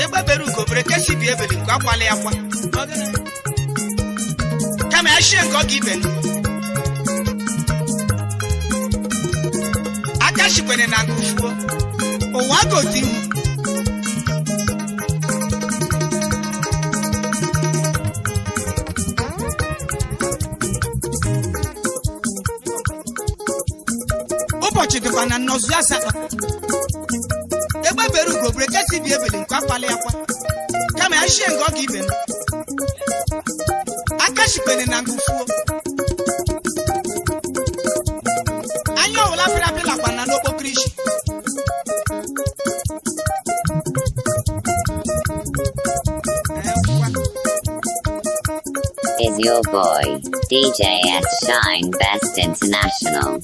Speaker 3: ekpebere ugo bere kechi bi nke akwa appreciate God given. Aja shikwere na kufuo. Ụwa gozi m. ụbọchị dịkwa na nnọzụ asatọ egbebere ugo brekesi bi ebele nke akwala ya kwa kama ya shie nke ọ ga ibe m
Speaker 1: boy, DJ at Shine Best International.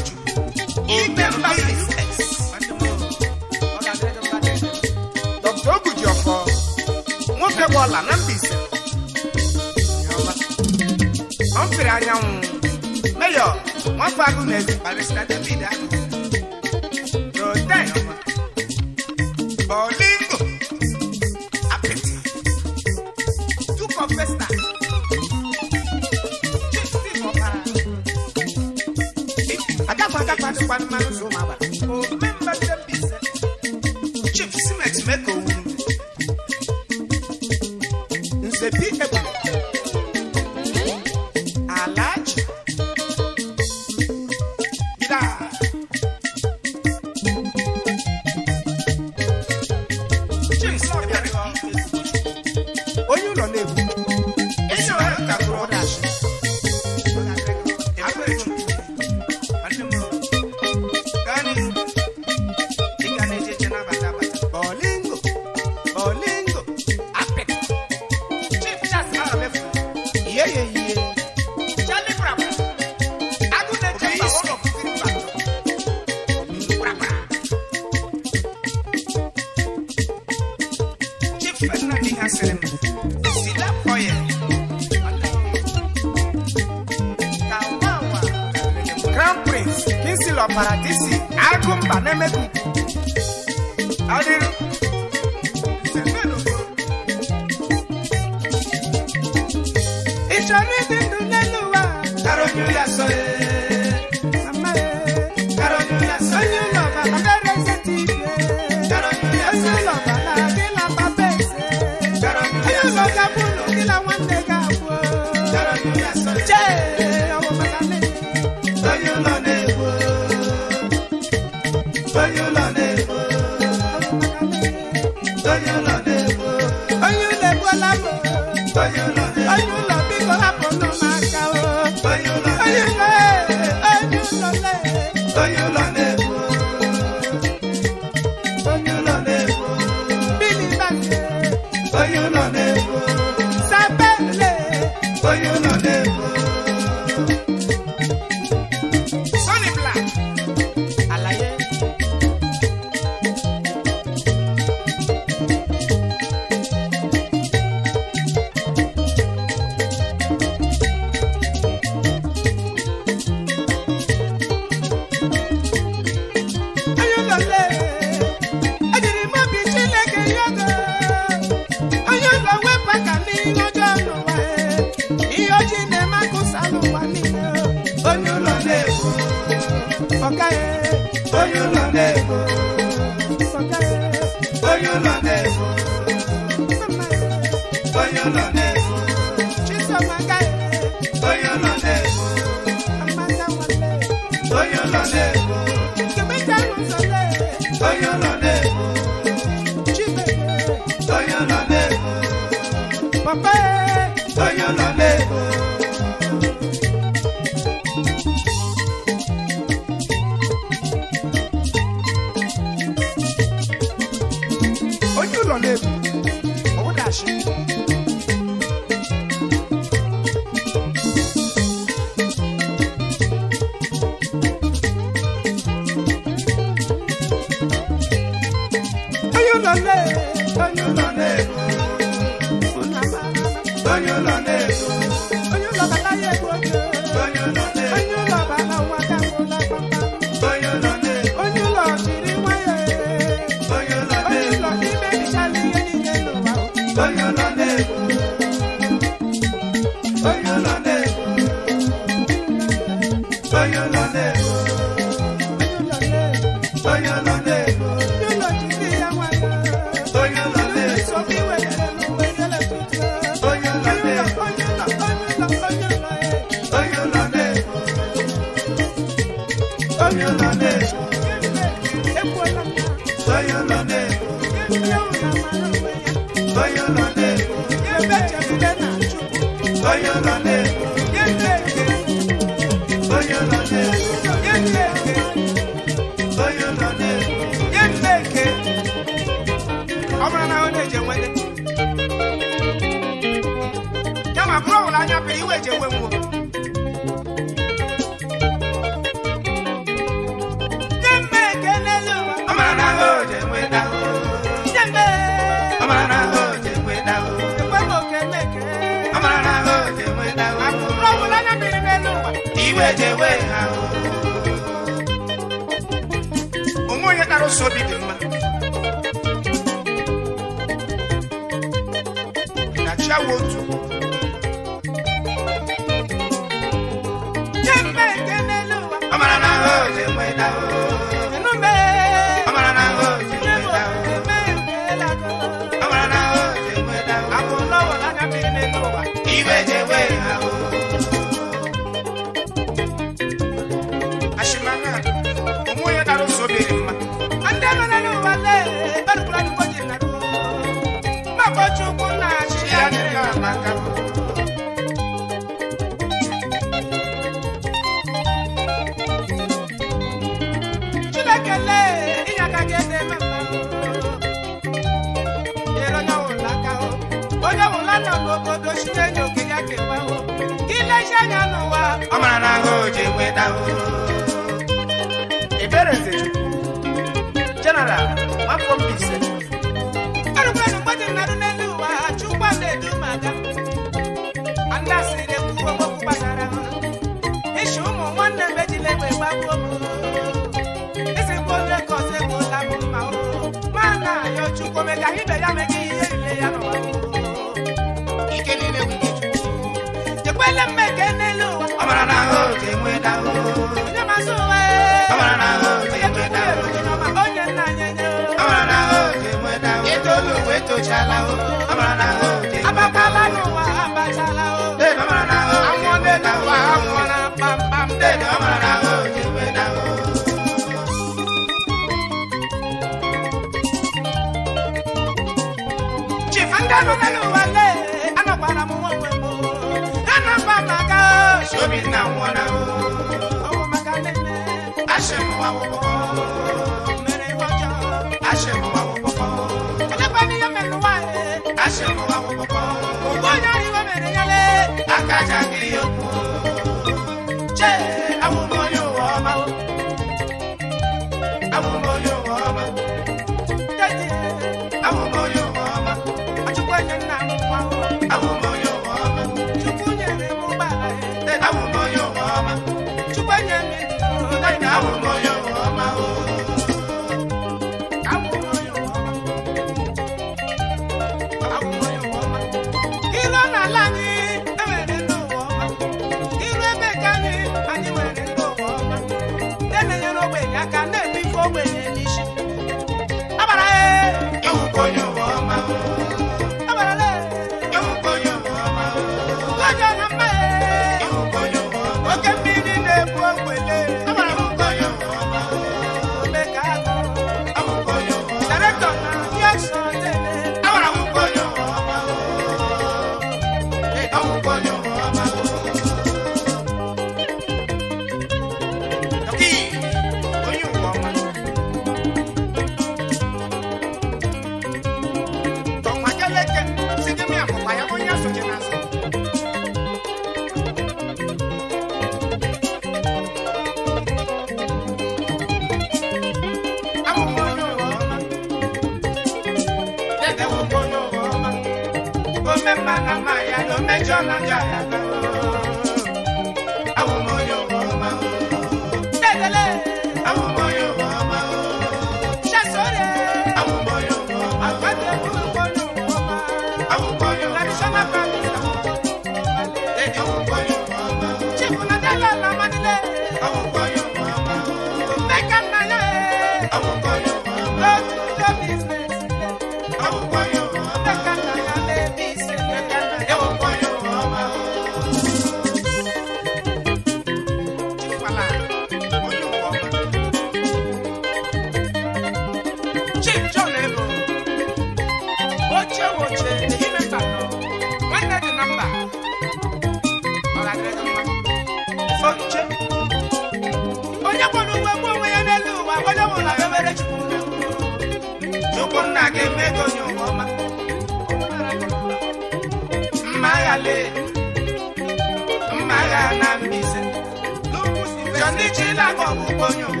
Speaker 3: Acompanho.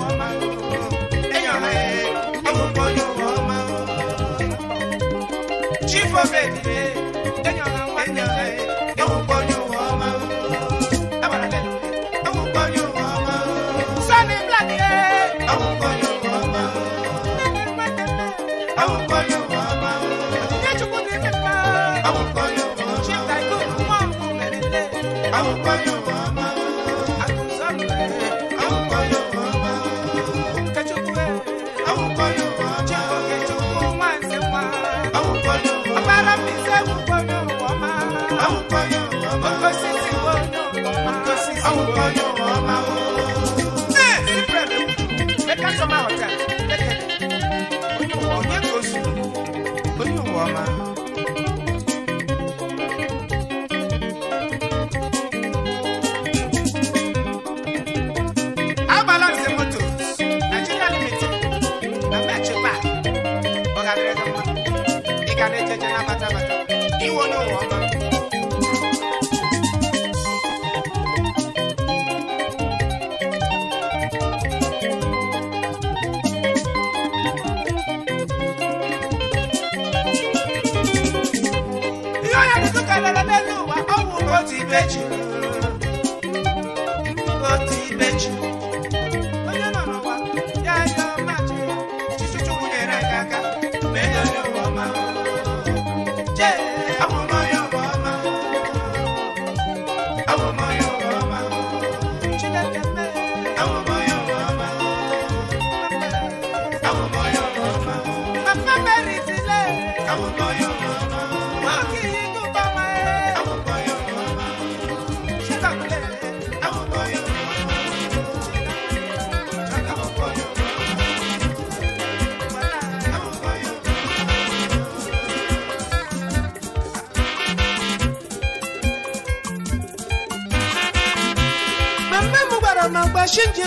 Speaker 3: Awukọ yóò wọ́n máa wò. Ṣé ìbúrẹ̀ mi? Ẹ ká sọ máa wọ̀ tẹ̀. repete.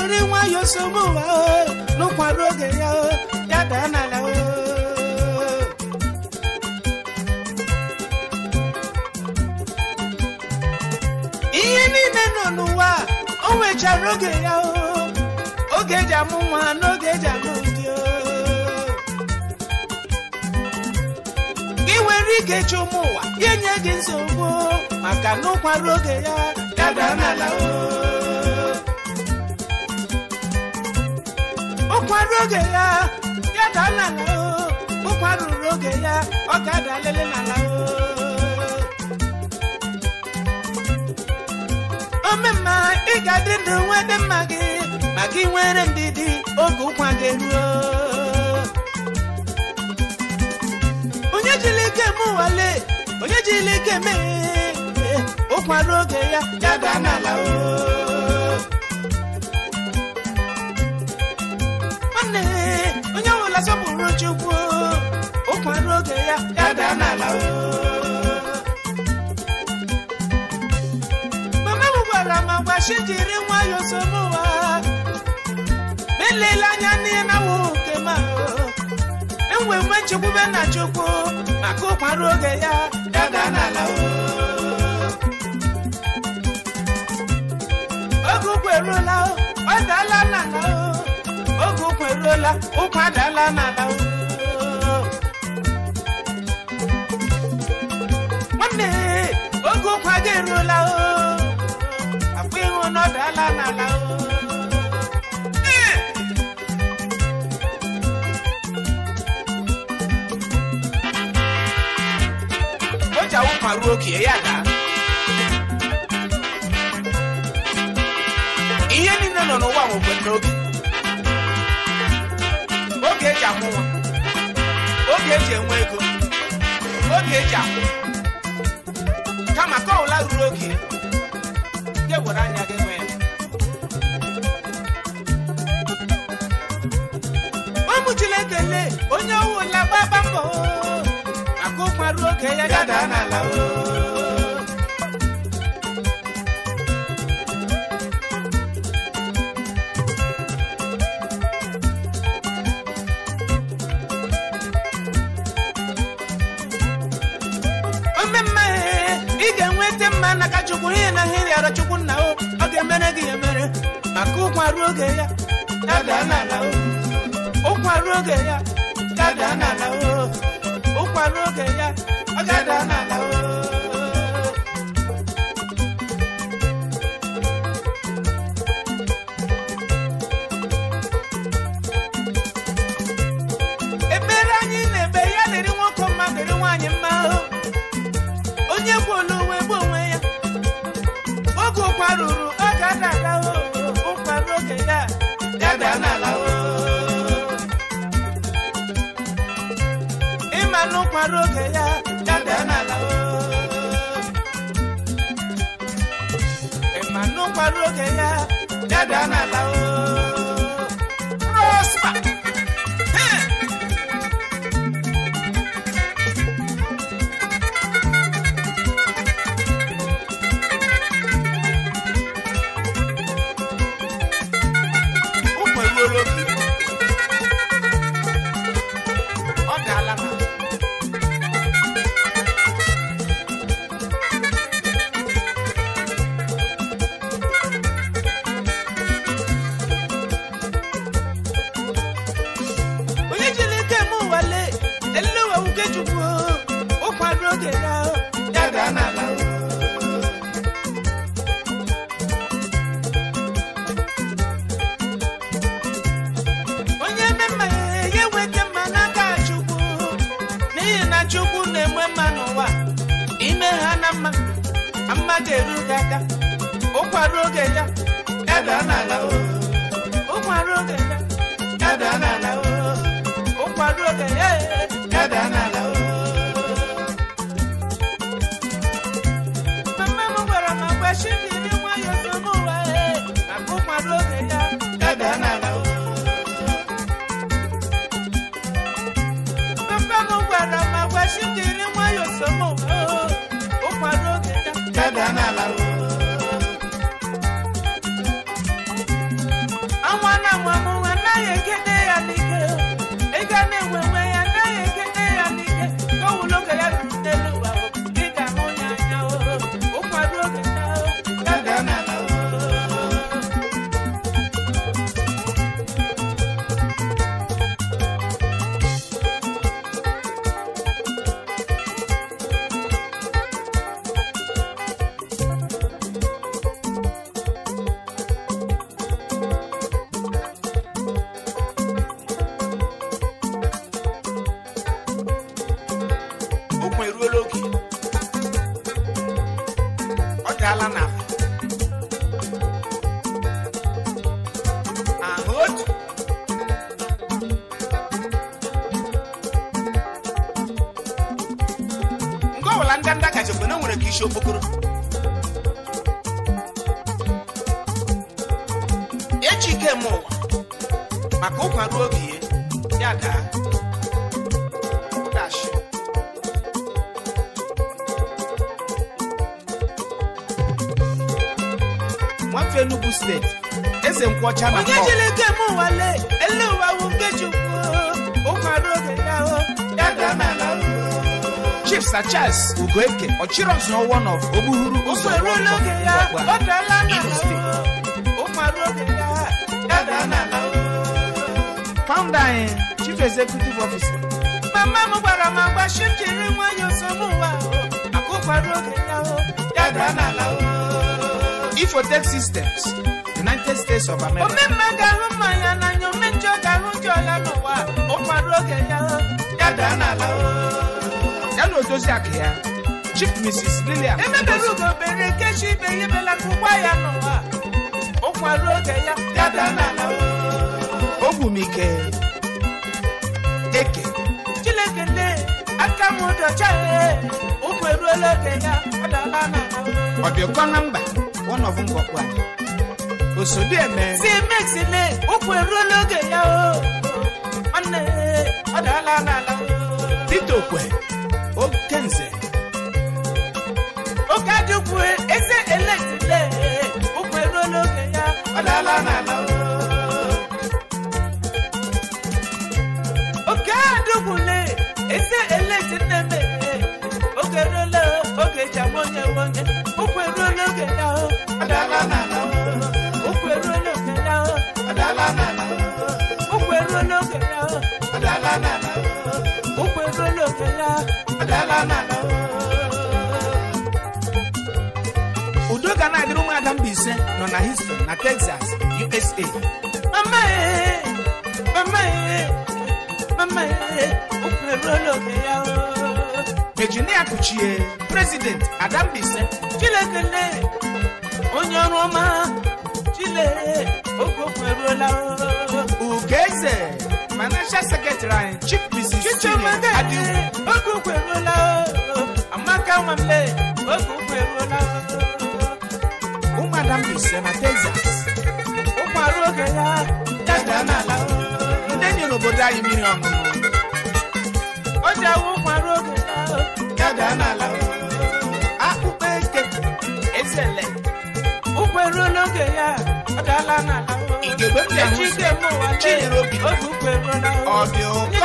Speaker 3: jiri nwayọ nsogbu oh, n'ụkwado oge ya oh, ya daa n'ala oh. ihe niile nọ n'ụwa o nwechara oge ya oge eji amụ nwa n'oge eji amụ ndị gị nwere ike ịchụ ụmụ ụwa ya nye gị nsogbu maka na ụkwara oge ya ya daa n'ala o ụkwara oge ya ya dala ụkwara ruru oge ya ọ ga-ada lele n'ala omemma ị ga-adị ndụ dị mma gị maka ị nwere ndidi oge ụkwa gị eruo onye jiri ike eme nwale, onye jiri ike mee ụkwara oge ya ya daa n'ala o makwa chi jiri nwayọọ somụwa elela anya n'ihe na wụ nke ma enwe nwe nchekwube na chukwu maka ụkwara oge ya dada n'ala oge ụkwa eruola ọ dala n'ala oge ụkwa eruola ụkwa daala n'ala nwanne oge ụkwa ga eruola na na na oji awụ ma ruo oke ya daa ihe niile nọ n'ụwa nwekwe n'oge oge eji akwụ nwa oge eji enwe ego oge eji akwụ kama ka ọwụla ruru oge gị were anya gị niile onye wụla gbaba mbọ akụ marụ oge ya gada n'ala ị chukwu ihe na ihe rịara chukwu nna o ọ ga-emere gị emere maka ụkwa ruo oge ya dada n'ala o ụkwara oge ya gada n'ala o gada n'ala o mara oge ya ya daa n'ala ịma na ụkwara oge ya ya daa ooo Mr. Charles Ugoeke Ochiros no one of Obuhuru Ụzọ eruo n'oge ya ọ dala na Founder Chief Executive Officer Mama m gwara m agwa shi jiri nwayọọ nsogbu ụwa akụkwara oge ya ya daa n'ala Systems United States of America Omemma ga-ahụ mmanya n'anya omenjọ ga-ahụ njọ ya n'ụwa ụkwara oge ya ya daa n'ala Mary Odoziak ya Chief Mrs. Lilian emebere ugo bere nkechi ibe ihe belata ụgwọ ya n'ụwa ụkwa ruo oge ya dada n'ala ogwumike eke Chineke nne aka m dọcha ụkwụ e. eruola oge ya ọdala n'ala ọbịakọ na mba one of ngwọkwa eme. si mexile ụkwụ eruola oge ya o nwanne ọ dala n'ala tito okwe Okenze. Okajukwu eze eletile ụkwụ eruo n'oge ya ọ na. n'ala Okadukwule eze eletile mere oge ruola oge ji ama onye ya ọ na. n'ala udo ga na-adịrị ụmụada mba ise nọ na Houston na Texas USA Virginia e, e, e, Kuchie President Adambise Chilekele onye ọrụ ọma Chile oge okweruola Ugeze Manager Secretary anyị Chief Mrs. Adịwu mle oge ụkwụ eruola ụmụada m ise na Texas ụmụ arụ oge ya dada n'ala ndị enyi n'obodo awụ ụmụ arụ oge ya ụkwụ eruola oge ya ọ dala ike mụwa lee ụkwụ eruola ọ dị ụkọ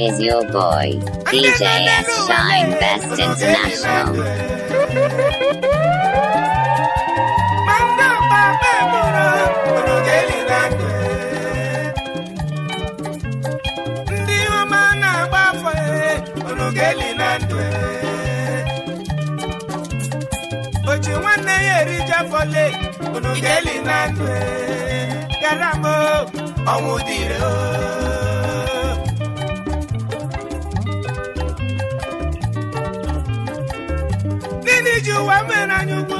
Speaker 1: Is your boy, DJ S. Shine Best International.
Speaker 3: ideli na-atụ garamo ọnwụ dịrị gịnị ji ụwa mere anyị ugwu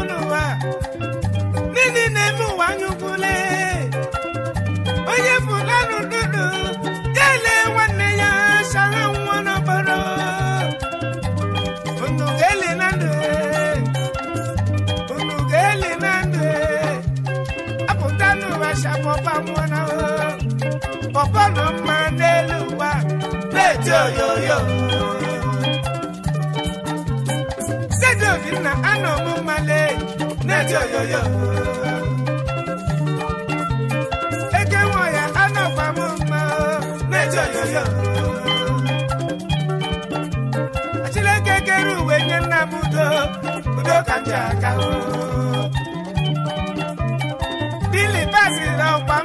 Speaker 3: anọ m mmale na yo. eke nwa ya anọkwa m mma na-eti oyoyo achileke kere uwe nye nna m ka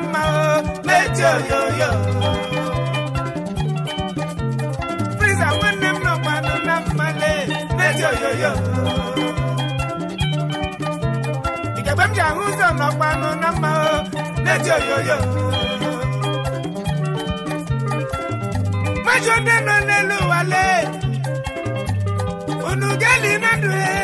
Speaker 3: na-eti oyoyo yo yo. m nọkwa mgbe m ji ahụ ụzọ n'ọkpanụ na mma na-eji oyoyo majọ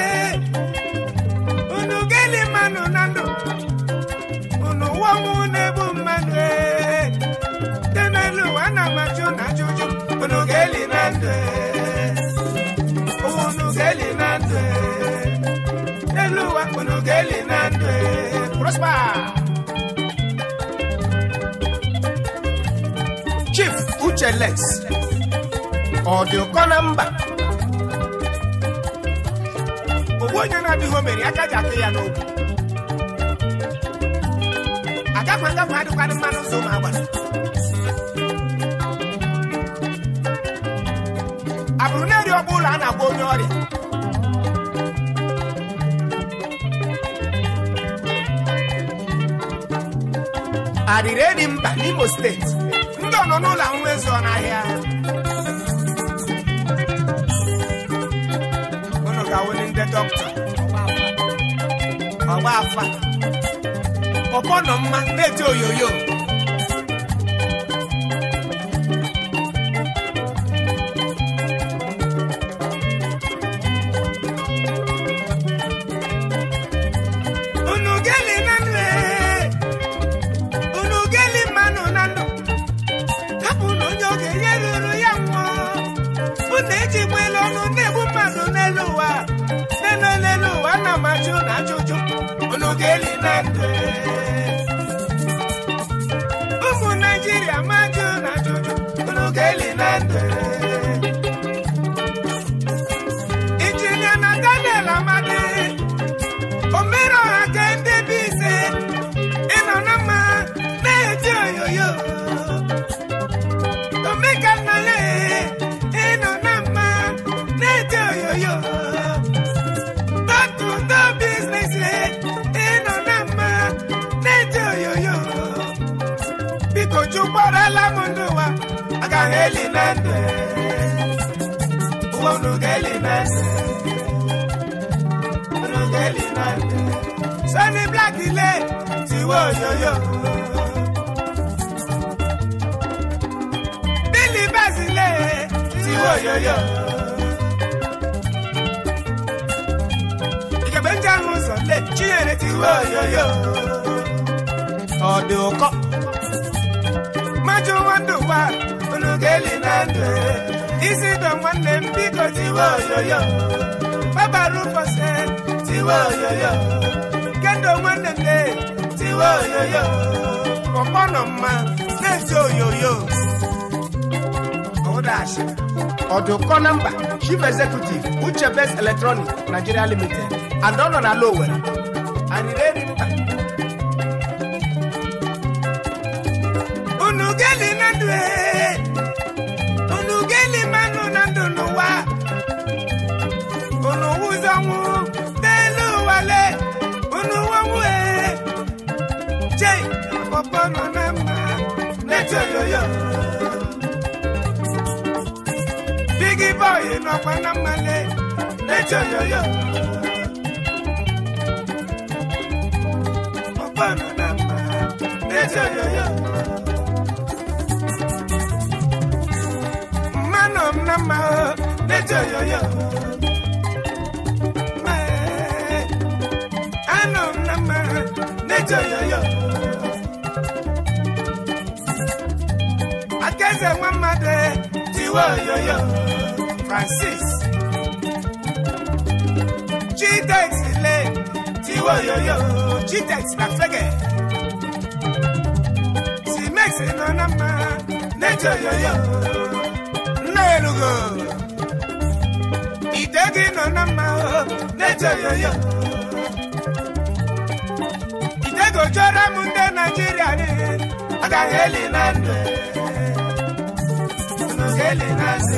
Speaker 3: ọ dị ụkọ na mba ogbu onye na-adịghị obere aka ji akụ ya n'okwu agakwa agakwa adịkwadị mma n'ụzọ ụmụ agbara abụrụ na-eri ọgba ụlọ a na-agwa onye ọrịa arịrị eri mba n'Imo steeti nọ n'ụlọ nwezu n'ahịa unu ga-awụli ndị dọkịta ọgba afa pọpọ nọ mma na-eti oyoyo kelimete ubonu kelimete ubonu kelimete sani black ilé
Speaker 2: tiwo yoyo.
Speaker 3: bílí bẹ́sì ilé
Speaker 2: tiwo yoyo.
Speaker 3: ìkẹ̀bẹ̀ ń jẹun sọ̀lẹ̀ chinyere tiwo yoyo. yo òkọ́ májú wọn dùn wá geli na ndụ isi dọ nwanne m biko tiwe oyoyo gbabaru fose tiwe oyoyo kendo nwanne nne tiwe oyoyo ọkpọ nọ mma na-eti oyoyo ọdachi ọdụkọ na mba chief executive uche best electronic nigeria limited and ọ nọ na ala ọkwa na mmale na-eche oyoyo ọkwa nọ na mma na yo. oyoyo mma nọ m na mma na-eche oyoyo anọ na mma na-eche oyoyo aka eze nwa mmadụ tiwe oyoyo Francis Gtex le Tiwoyoyo Gtex na flege Timex nọ na mma n'ejoyoyo nna elugo ite gị nọ na mma n'ejoyoyo ite gojọrọ m ndị Naịjirịa agaghị eli na ndụ agaghị eli na ndụ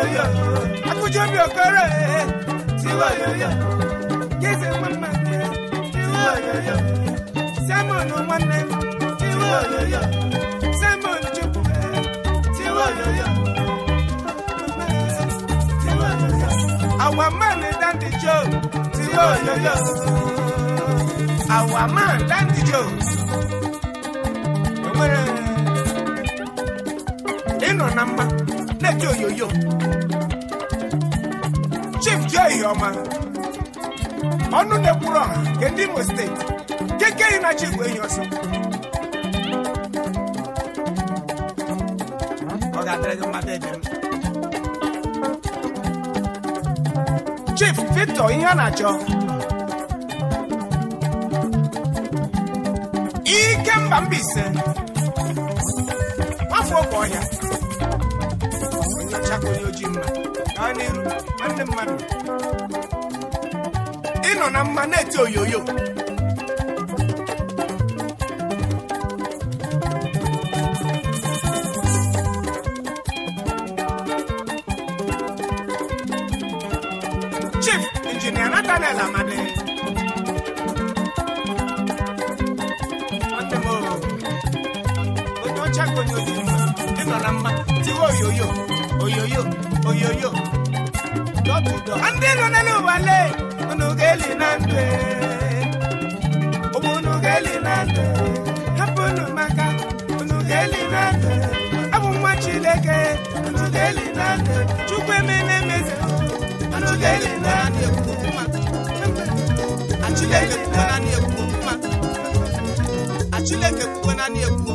Speaker 3: yoyo akújọ bí ọkọrẹ tiwa yoyo kése wọn máa gbé tiwa yoyo sẹmọnù wọn nẹ tiwa yoyo sẹmọnù chukwu ẹ tiwa yoyo tiwa yoyo àwọn máa ní dáńdì jọ tiwa yoyo àwọn máa dáńdì jọ. Inọ na mma na-eji oyoyo ọma ọnụ na-ekwuru ọha nke ndị Imo steeti keke yi na chi bụ enyi ọsọ ọ ga-adịrị mmadụ ebe m Chief Victor ihe a na-achọ ike mba Mbaise afọ oge ọhịa onye ọcha ka onye ojii mma gaa n'iru nwanne mmadụ ịnọ na mma na-eti oyoyo chief injinia Nathaniel Amadi onye ọcha ka onye ozi mma ịnọ na mma tiwe oyoyo oyoyo oyoyo ọgụdọ ndị nọ n'elu ụwa lee unu ga-eli unu ga-eli na hapụ unu maka unu ga-eli na ndụ abụ nwa Chineke unu ga-eli na ndụ Chukwu emena emeze unu ga-eli na ndụ Achileke kwukwe na ekwu okwu mma Achileke kwukwe na ekwu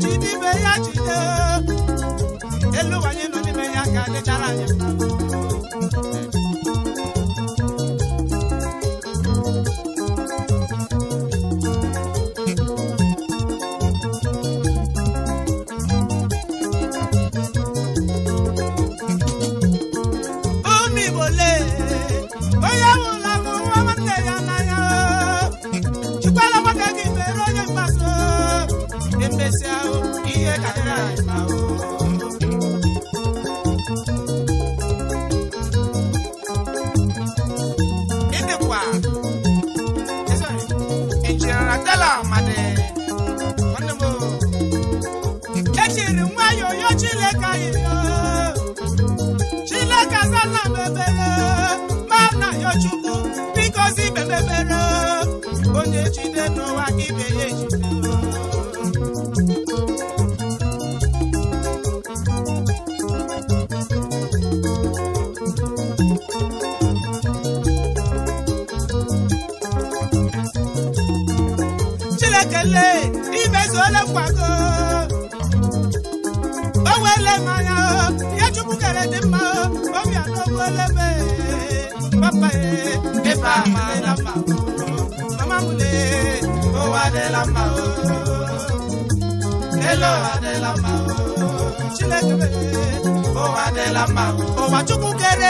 Speaker 3: jide ibe ya jide elu anyị nọ n'ime ya ka dịchara anyị mma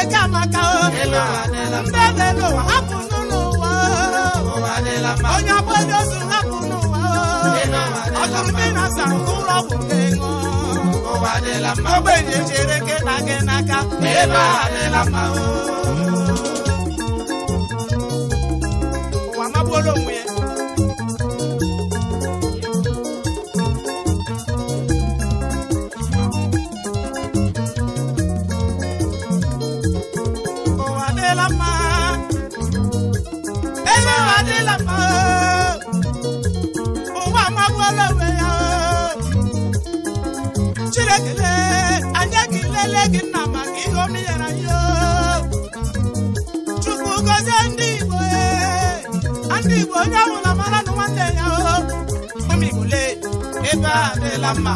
Speaker 3: jamaka mbebe lo hapunu n'ụwa onye agbọghị ozu hapunu ụwa ọtụtụ na san ụlọ bụ ego ogbenye chere gị na gị n'aka ebe adịla mma adịla mma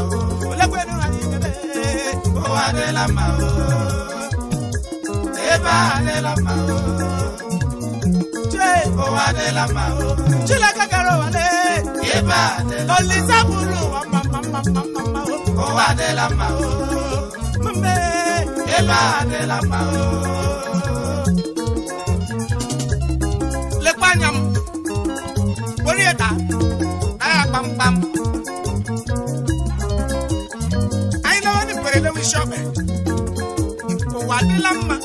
Speaker 3: olekwenu anyị kebe ụwa adịla mma ebe eh, a adịla mma chee ụwa adịla mma Chineke gara ụwa le eba a Olisa bụrụ ụwa mma mma mma mma mma ụwa adịla mma mbe mma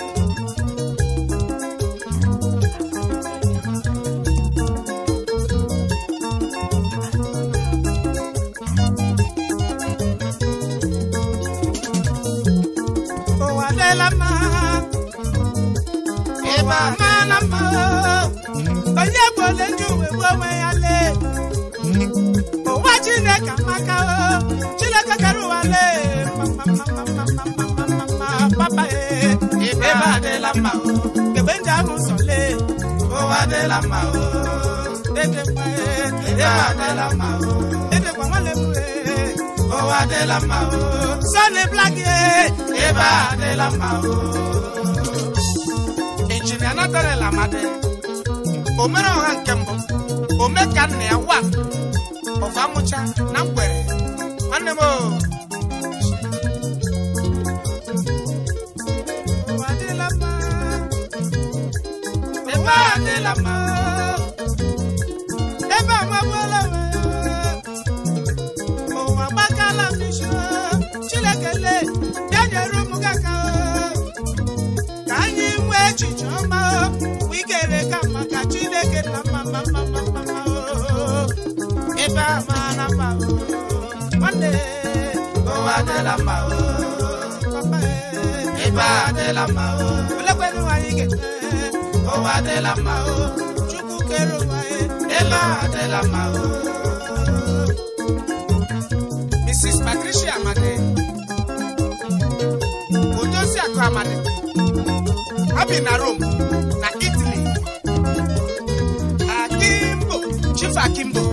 Speaker 3: ụwa adịla mma ịba amaala mma onye gbole ndị uwe onwe ya lee ụwa Chineke amaka mma o kebe ndị ahụ sole ụwa adịla mma o edekwa adịla mma o edekwa nwanne m ụwa adịla mma o sọni blak ebe adịla mma o injinia natarela amadi omere ọha nke mbụ ome ka nna ya wa ọfa mụcha na mgbere nwanne la ma ebe a nwekwala m ụwa gbakala m n'isi Chinekele bịa nyere ụmụ gị aka ka anyị nwee echiche ọma wee kere ka maka Chineke na mma mma mrs patricia amadi odozi akụ amadi ha bi na rome na italy akimbo chief akimbo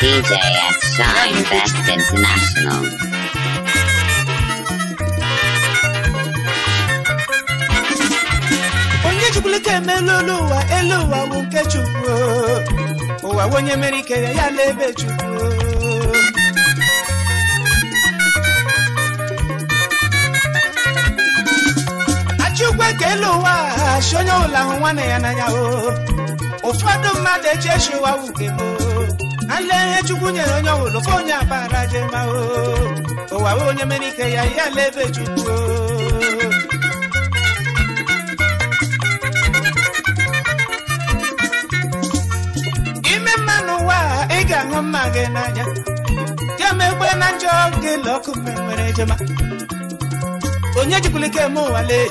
Speaker 1: DJ at Shine Fest International.
Speaker 3: chukuluka emela olu ụwa elu ụwa bụ nke chukwu ụwa onye mere ike ya ya ebe chukwu achukwu ka elu ụwa ha si onye ọbụla hụ nwanne ya n'anya o ụfọdụ mmadụ eji echi ụwa wuke gboo ile ihe chukwu nyere onye ọbụla fe onye abara je mahụ ụwa we onye mere ike ya ya ala ebe chukwu ime mma n'ụwa ị ga-ahụ mma gị n'anya jemegbe na njọ gị lọkụ mmemmere jema onye jikwulike eme ụwa lee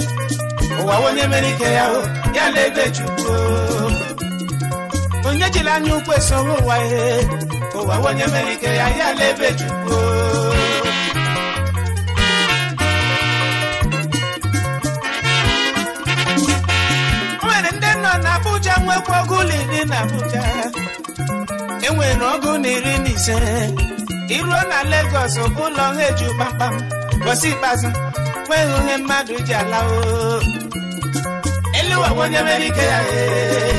Speaker 3: ụwa onye mere ike ya ya ala ebe chukwu onye jiri anya ukwu esowe ụwa ihe ụwa onye mere ike ya ya ala ebe chukwu nwere ndị nọ na Abuja nwekwa ọgụ ụlọ na Abuja enwere ọgụ na iri na e ise iruo na Lagos bụ ụlọ ha eji kpamkpam gosi ikpeazụ nweghị onye mmadụ ji ala o onye mere ike ya ee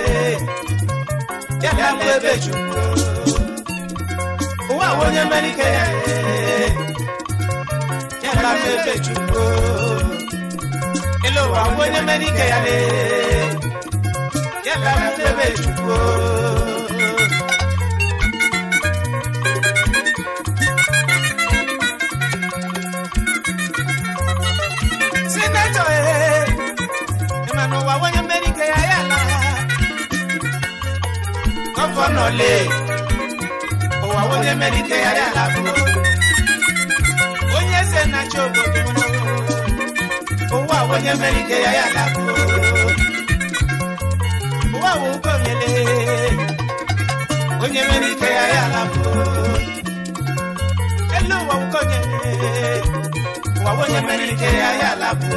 Speaker 3: ya ka mgbe ebe juru ụwa bụ onye mere ya ya ka mgbe ebe juru onye ya ya ka mgbe nọlé ụwa onye ya ala onye se na-achị obodo ụwa onye ya ala ụwa wụ ụgọnyele onye ya ala elu ụwa ụgọnyele ụwa onye ya ala bụ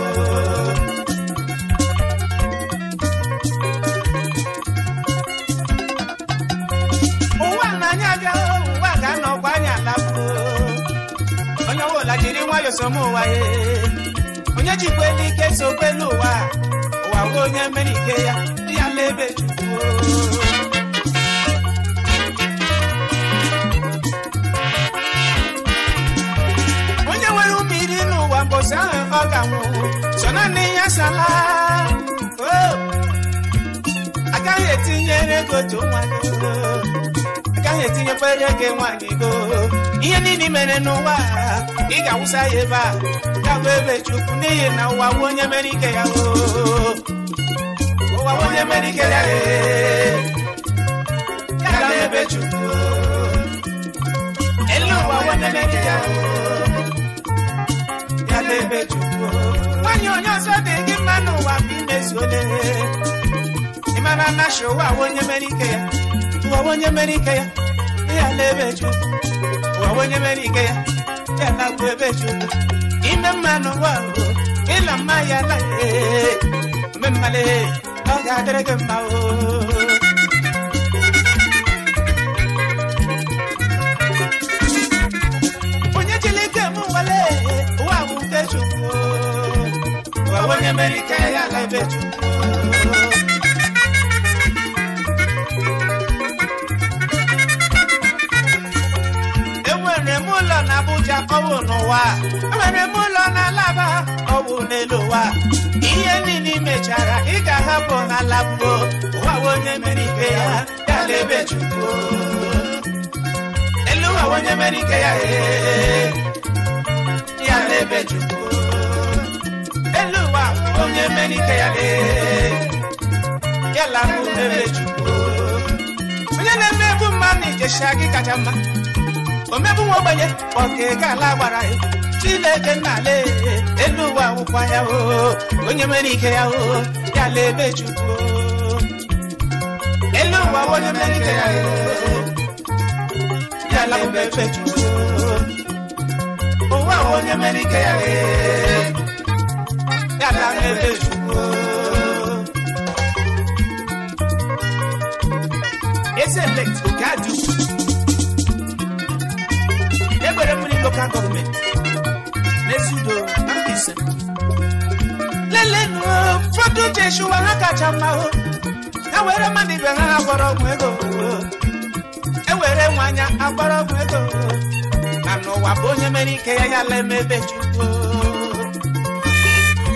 Speaker 3: ụwa onye jikwa ike so n'ụwa ụwa ụwa nwe onye mere ike ya dị ya n'ebe onye nwere ụmụ iri n'ụwa mbọsị ahụ ọ ga-anwụ so naanị ya sala agaghị etinyere ego nwa gị agaghị etinyekwere gị nwa gị go ihe niile mere n'ụwa Iga ga ga-awụsa ya ebe a na ụwa bụ onye mere ike ya ụwa bụ onye ya ya na ebe elu ụwa bụ ya ya na ebe chukwu nwanyị onye ọzọ dị gị mma n'ụwa bụ ya ụwa bụ onye ya ya na ebe chukwu ya Kana kwebeshuta ime mano wangu ila mayala ye memale oyaderege mao onye chilike mụ wale wawu keshuo wawenye merike yala ebechuta Abuja ọwụ n'ụwa enwere m ụlọ na alaba ọwụ n'elu ụwa ihe niile imechara ị ga-ahapụ na labuo ụwa onye mere ike ya ya lebe ebe chukwu elu ụwa onye mere ike ya ee ya lebe ebe chukwu elu ụwa onye mere ike ya ee ya labụ ebe chukwu onye na-emegbu mmadụ ijesha gị kacha mma omebụ nwa ogbenye ọkega ala gbara ya Chineke nna ala elu ụwa akwụkwọ ya o onye mere ike ya o ya la ebe Chukwu elu ụwa onye mere ike ya o ya la ebe Chukwu ụwa onye mere ike ya o e, ya la ebe Chukwu Ese ga-adị echuwa ha kacha mma hụ ha e were mmadụ ibe ha ha gwọrọ ọgwụ ego ewere nwanya agbọrọ ọgwụ ego na n'ụwa bụ onye mere ike ya ya la emebe chukwu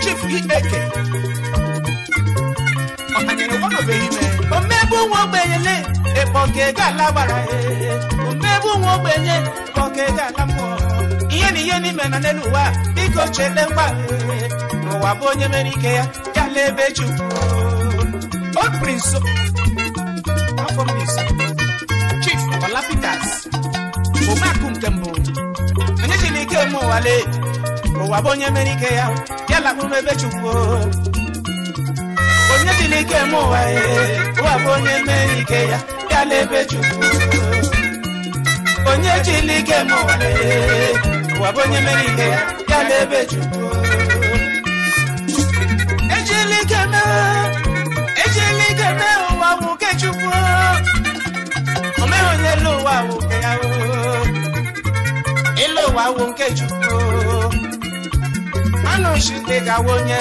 Speaker 3: chief ikpeke ọkanyere gwanụbeghị ime omegbu nwa ogbenye ịkpọka e ego ala gbara ya e. omegbu nwa ogbenye ịkpọka ego ala mmụọ ihe na ihe n'ime na n'elu ụwa biko chele mgba n'ụwa bụ onye mere ike ya n'ebe Chukwu afọ Chief Omeakụ nke mbụ onye Chineke ụwale ụwa bụ onye mere ike ya ya lakpụ m ebe Chukwu onye eme ụwa ya ụwa bụ onye mere ike ya ya la ebe Chukwu onye eme ụwa bụ onye mere ike ya ya la ebe Chukwu ejela igede ụwa nwoke chukwu omehonyela ụwa nwoke ya ịlụ ụwa nke chukwu anụ chite gawa onye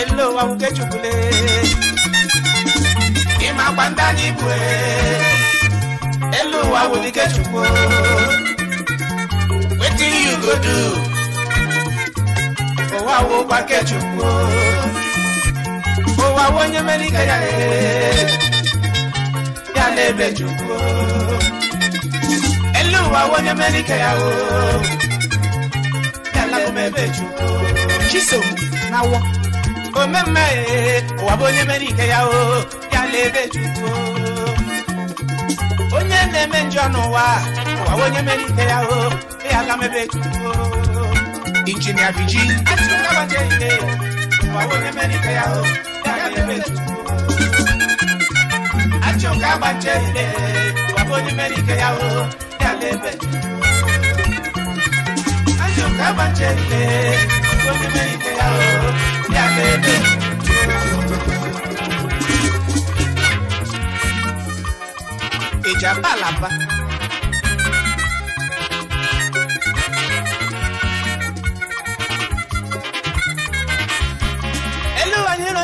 Speaker 3: elu ụwa nwoke chukwule ịma gba na anyị e, elu ụwa nwoke chukwu wetin you go do wá wo pákẹ́jù o ó wá wo nyemelike yàrá yàrá ebèjù o elu wá wo nyemelike yàrá yàrá omebèjù o chisom náwó omeme wá wo nyemelike yàrá yàrá ebèjù o onye na-eme njọ n'ụwa wá wo nyemelike yàrá yàrá omebèjù o. injinia viji atikabaje ide wawone merite yaho dabebetu atikabaje ide wawone merite yaho dabebetu atikabaje ide wawone merite yaho dabebetu ìjàmbá làbá.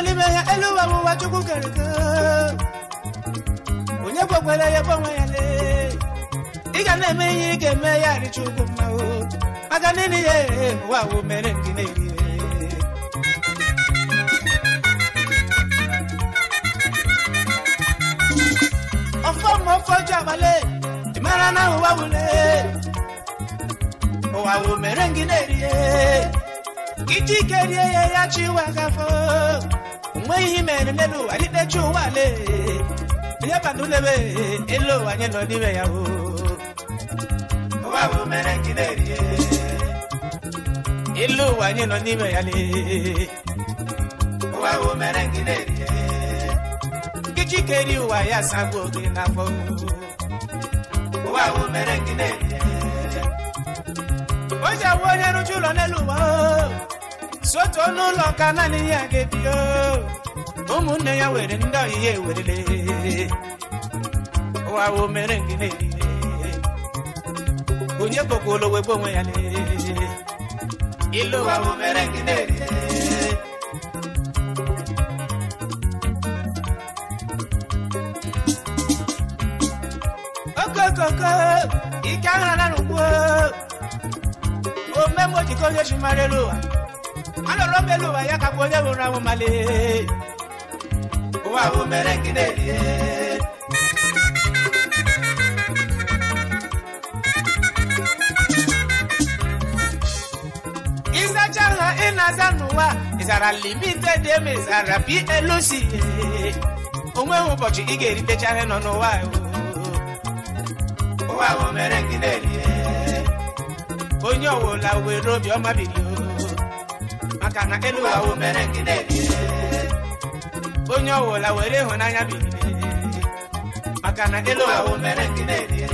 Speaker 3: n'ime ya elu ụwa wụwa chukwu kere eke onye kwekwere ya bụ onwe ya lee ị ga na-eme ihe ị ga-eme ya richa ugwu mma maka n'ihi ya ee ụwa wụ mere ndị na-eri ọfọ ma ọfọ ji abalị ị mara na ụwa wule ụwa wụ mere ngị na-eri ya iji ike rie ya ya chi ụwa gafọ nweghị ihe mere n'elu ụwa dịdechi ụwa le ihe bana ulebe elu anyị nọ n'ime ya o ụwa mere na Ilu ụwa anyị nọ n'ime ya le ụwa mere na chike ri ụwa ya sagbu gị n'afọ ụwa bụ o ji awụ onye rụcha ụlọ n'elu ụwa o sotu ọnụ ụlọ ka naanị ya ga-ebi ụmụnne ya were ndị ọyị ya ewerele ụwa wo mere ngine onye kpokwolo wegbu onwe ya ilu ụwa wo mere ngine okokoko ike ahara n'ugbo omemojiko onye elu ụwa isacaga inazanuwa izara limite dem izara bi elusi onwe ụbọchị ị ga-eritechaghị nọ n'ụwa onye ọwụla were obiọma bilio Makana elu ụwa wụ mere nke na-ebie onye ọwụla were ịhụnanya bilie maka na elu ụwa wụ mere nke na-ebie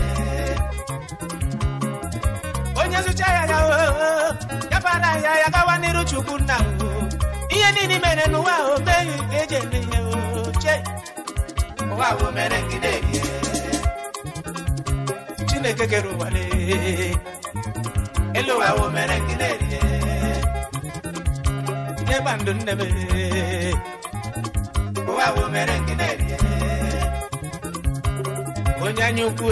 Speaker 3: onye zụcha ya ya ya bara ya ya gawa n'iru chukwu nna ihe niile mere n'ụwa o meghị ka eji eme ihe oche ụwa wụ mere nke na-ebie chineke kere ụwa elu ụwa wụ mere ne nne m ụwa wo mere na-erie. onye ngine onyanyukwu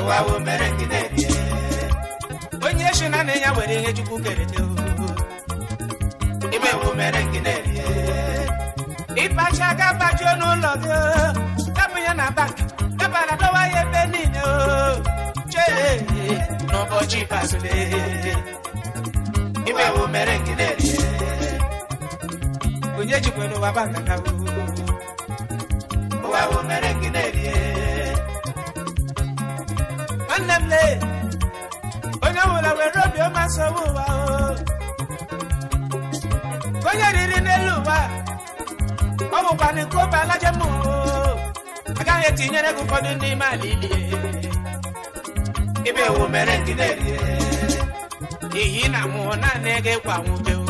Speaker 3: ụwa wo mere na ngine onye shi na na ya nwere ihe chukwu kere te ime wo mere ngine ịpacha ga apajuo n'ụlọ gị kapụ ya na bank dabara dọwa ya ebe niile o chee n'ụbọchị ikpeazụ lee onye jikwere ụwa ba nkata ụwa bụ mere gị na-erie nwanne m lee onye nwụrụ were obi ọma sowe ụwa onye riri n'elu ụwa ọ bụkwa n'iko obe alaje m agaghị etinyere gị ụfọdụ ndị ala ilie ibe ewu mere gị na-erie ihe ị na naanị nwute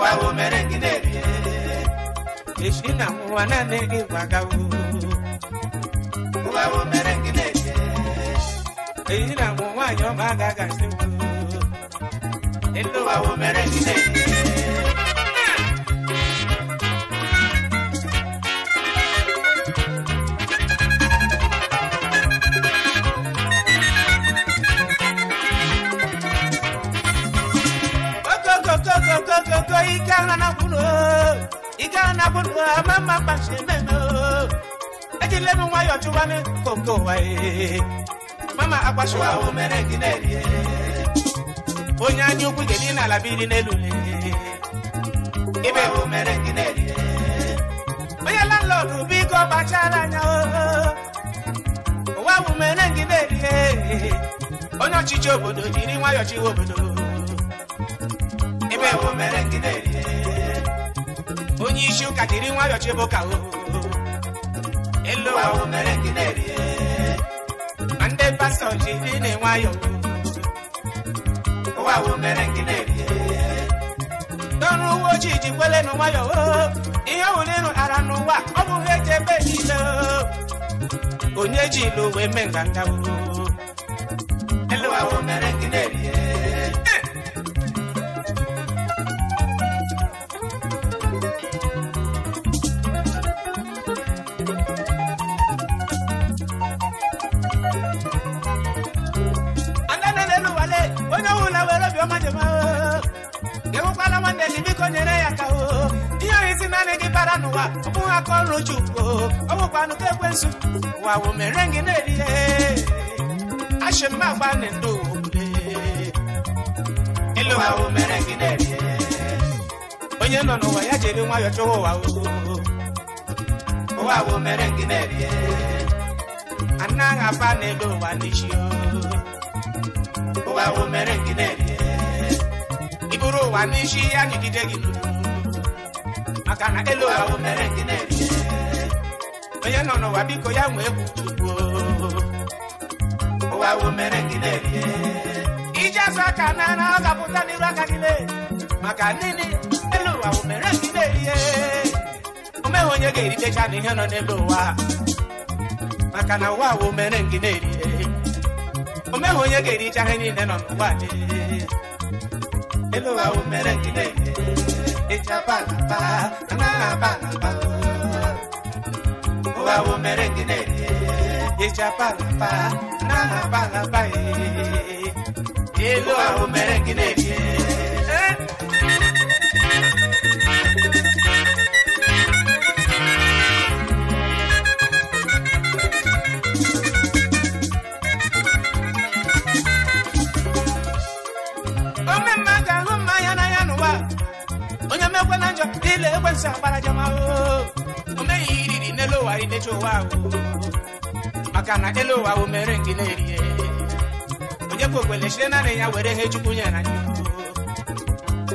Speaker 3: wawo merenginerie ishina wananegi wagawu wawo merenginerie eyina muwanyo magagasiwu elo wawo merenginerie igala na kwunu igala e e. e. na kwunu ama mma kpachi meno ejilenu nwayọ chụwanụ konko waye mama akpashiwa ahụ mere gị na-erie onye anya ukwu gị dị n'ala biri n'elu ibe ahụ mere gị na-erie onye landlọdụ ụwa ahụ mere gị na-erie onye ọchịchị obodo nwa nwayọ chịwa obodo onye isi ụka jiri nwayọọ chebe ụka elu ụwa mere gị na-erie ma ndị pastọ jiri na-enwayọ ụwa mere gị na-erie n'ọrụ uwe ojii ji kwele na nwayọ ihe ọbụla ịrụ ara n'ụwa ọ bụghị eji ebe niile onye ji ilu wee mee nganga elu ụwa mere gị na-erie n'ụwa ụmụ aka ọrụ chukwu ọwụkwanụ ka ekwensu ụwa wụ mere gị na-erihe achị mma agba na ndụ ịlụ ụwa wụ mere gị na-erihe onye nọ n'ụwa ya jiri nwayọọ chọwa ụwa ụwa wụ mere gị na-erihe anaghị aba n'elu ụwa n'isi ụwa wụ mere gị na-erihe iburu ụwa n'isi ya nyigide gị n'ụwa maka na elu ahụ mere gị na-ebi onye nọ n'ụwa biko ya nwee kwuchukwu ụwa ahụ mere gị na-ebi ije azụ aka na na ọ ga-apụta n'iru aka gị maka nini elu ụwa ahụ mere gị na-ebi omeghị onye ga-eritecha na ihe nọ n'elu ụwa maka na ụwa ahụ mere gị na-ebi omeghị onye ga-ericha ihe niile nọ n'ụwa elu ụwa ahụ mere gị na-ebi na, na, owawo merengene ichabalaba nganabalaba e owawo merengene ile ekwensu akparajama o omeghi iriri n'elu ụwa idecha ụwa maka na elu ụwa bụ mere nke na-erie onye kwe okwele chire naanị ya were ihe chukwu nyere anyị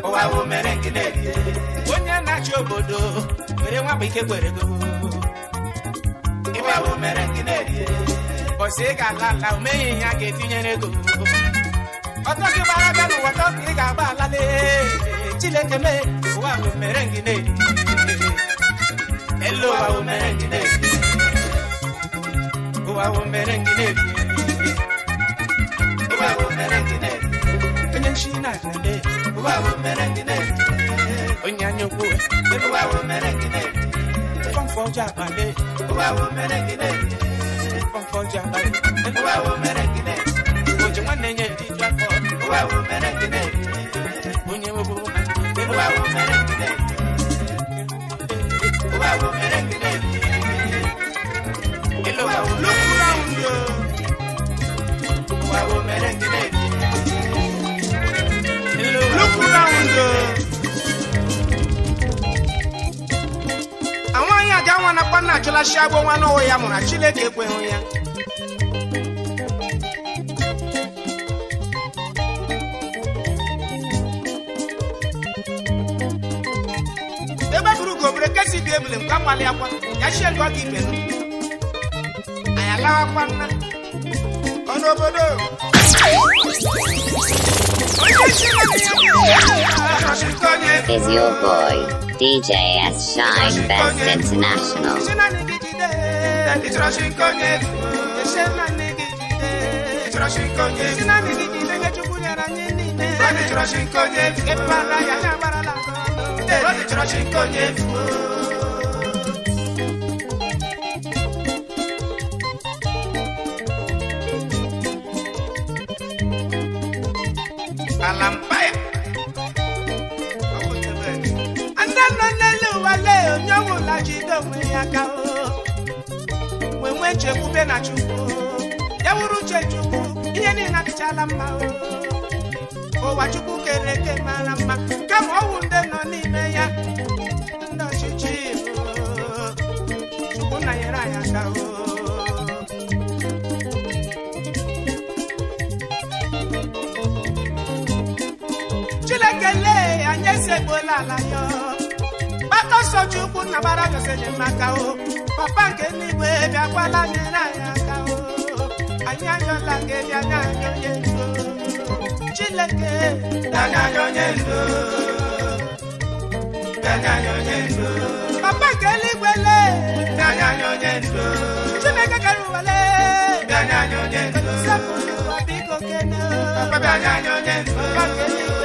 Speaker 3: ụwa bụ mere nke na-erie onye na-achị obodo were nwabụ ike kwere go ịwa bụ mere nke na-erie bọsị ị ga-ala ala omeghi ihe a ga-etinyere ego ọtọ gị gbara bịa n'ụwa tọ ka ị ga-agba ala lee Chineke mee wa umerengine
Speaker 1: hello wa umerengine
Speaker 3: ne, umerengine wa umerengine onyanshina ne, wa umerengine onyanyoku wa ne, konfoja bale wa umerengine konfoja bale wa umerengine ojumwanenye tijwako wa umerengine onyewo anwaghị aja nwa nakwa na achụlachi agbọ nwa n'ụwa ya mụrụ Chineke ekweghị ya ebule m oh,
Speaker 1: Is your boy DJ S Shine Best International?
Speaker 3: I'm ala ndị n'elu ụwa onye ọnwụla jide onwe ya aka wee nwee chekwube na chukwu ya nwụrụ uche chukwu ihe niile adịchala mma ụwa chukwu kere eke mara mma kama ọwụ ndị nọ n'ime ewela ala ya gbata sochukwu papa nke n'igwe bịakwala nyere anyị aka o anyị anyọla gị bịa n'anya onye papa nke n'igwe papa papa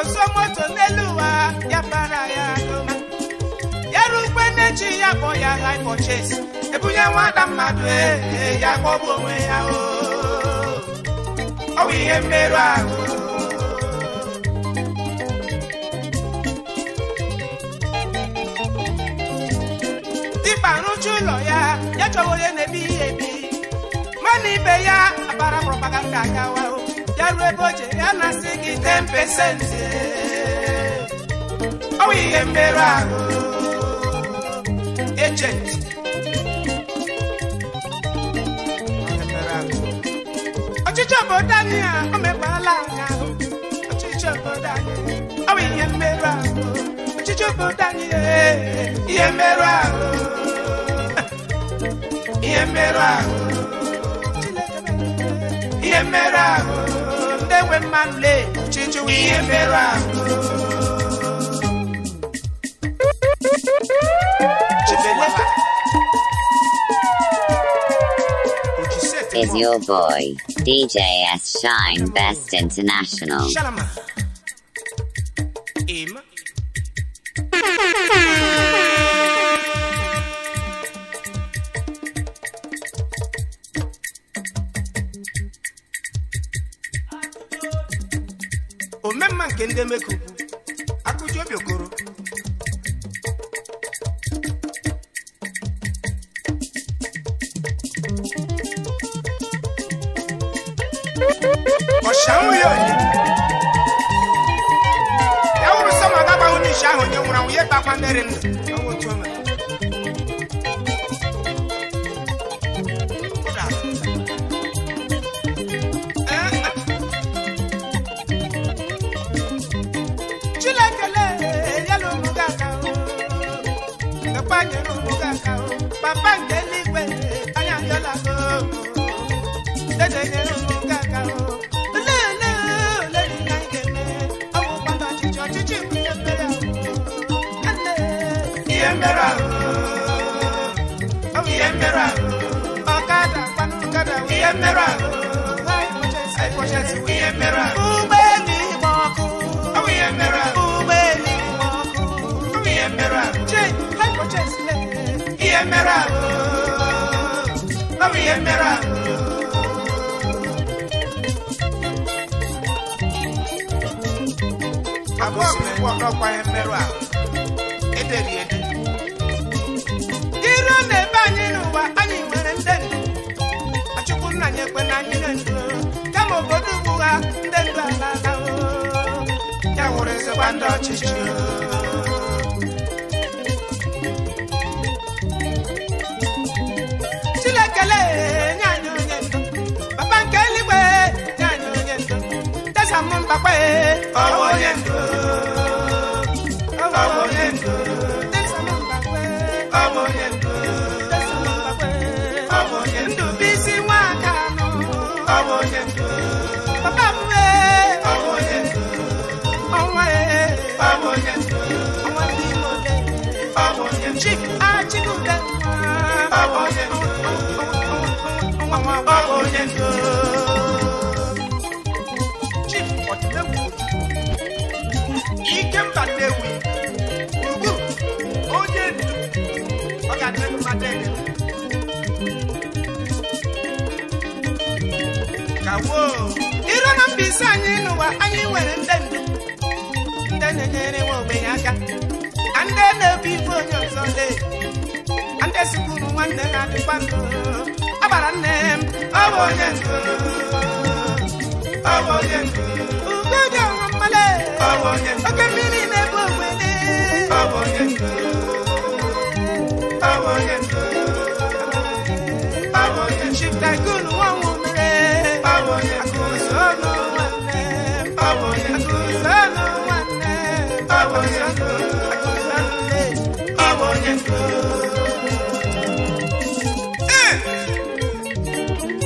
Speaker 3: kọsọ moto n'elu ụwa ya bara ya n'ụwa ya ukwe na ya kpọ ya high ebunye nwata mmadụ e, e, ya kpọbụ onwe ya ọ bụ ihe mmerụ ahụ dịba rụcha ụlọ ya ya chọwa onye na-ebi ebi mana ibe ya abara propaganda akawa ya ruo ebe o ya na-asị gị 10 pesenti ọwụ oh, ihe mmerụ ahụ ejenti ọchịchị obodo anyị a o mekpala anyị ahụ ọchịchị obodo anyị oh, ọwụ ihe mmerụ ahụ ọchịchị obodo anyị ihe mmerụ ahụ ihe mmerụ ahụ ihe mmerụ ahụ ndị nwe mma nle ọchịchị ihe mmerụ ahụ
Speaker 1: is your boy, DJS Shine Best International.
Speaker 3: I I I I I nwaka nọ papa I wee ọnwa ee I ndị Igbo chik I nwa nwa nwa And you know I masị anyị n'ụwa Then nwere ndị ndu ndị na-enyere and then aka ndị na-ebu ibu onye ọzọ ndị sikwuru nwanne na-adịkwa ndụ a gbara nne m
Speaker 2: ọ bụ onye ndu
Speaker 3: ọ bụ and ndu ugoja ọnwa mmale oke mmiri na-ebu ogbenye ọ bụ onye ndu ọ bụ onye ndu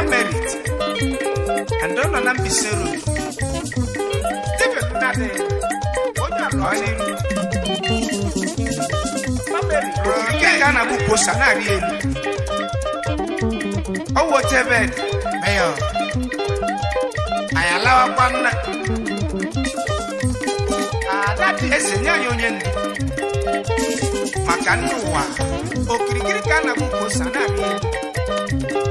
Speaker 3: emerit ando nọ na mbise ruru debekụnadị onye alụọlị mameri rụrụ nke ga na-abụ kwosa na Oh elu ọwụ jebed meyo anyị alawakwa nna ada dị eze nye anyị onye ndu maka ndị ụwa na na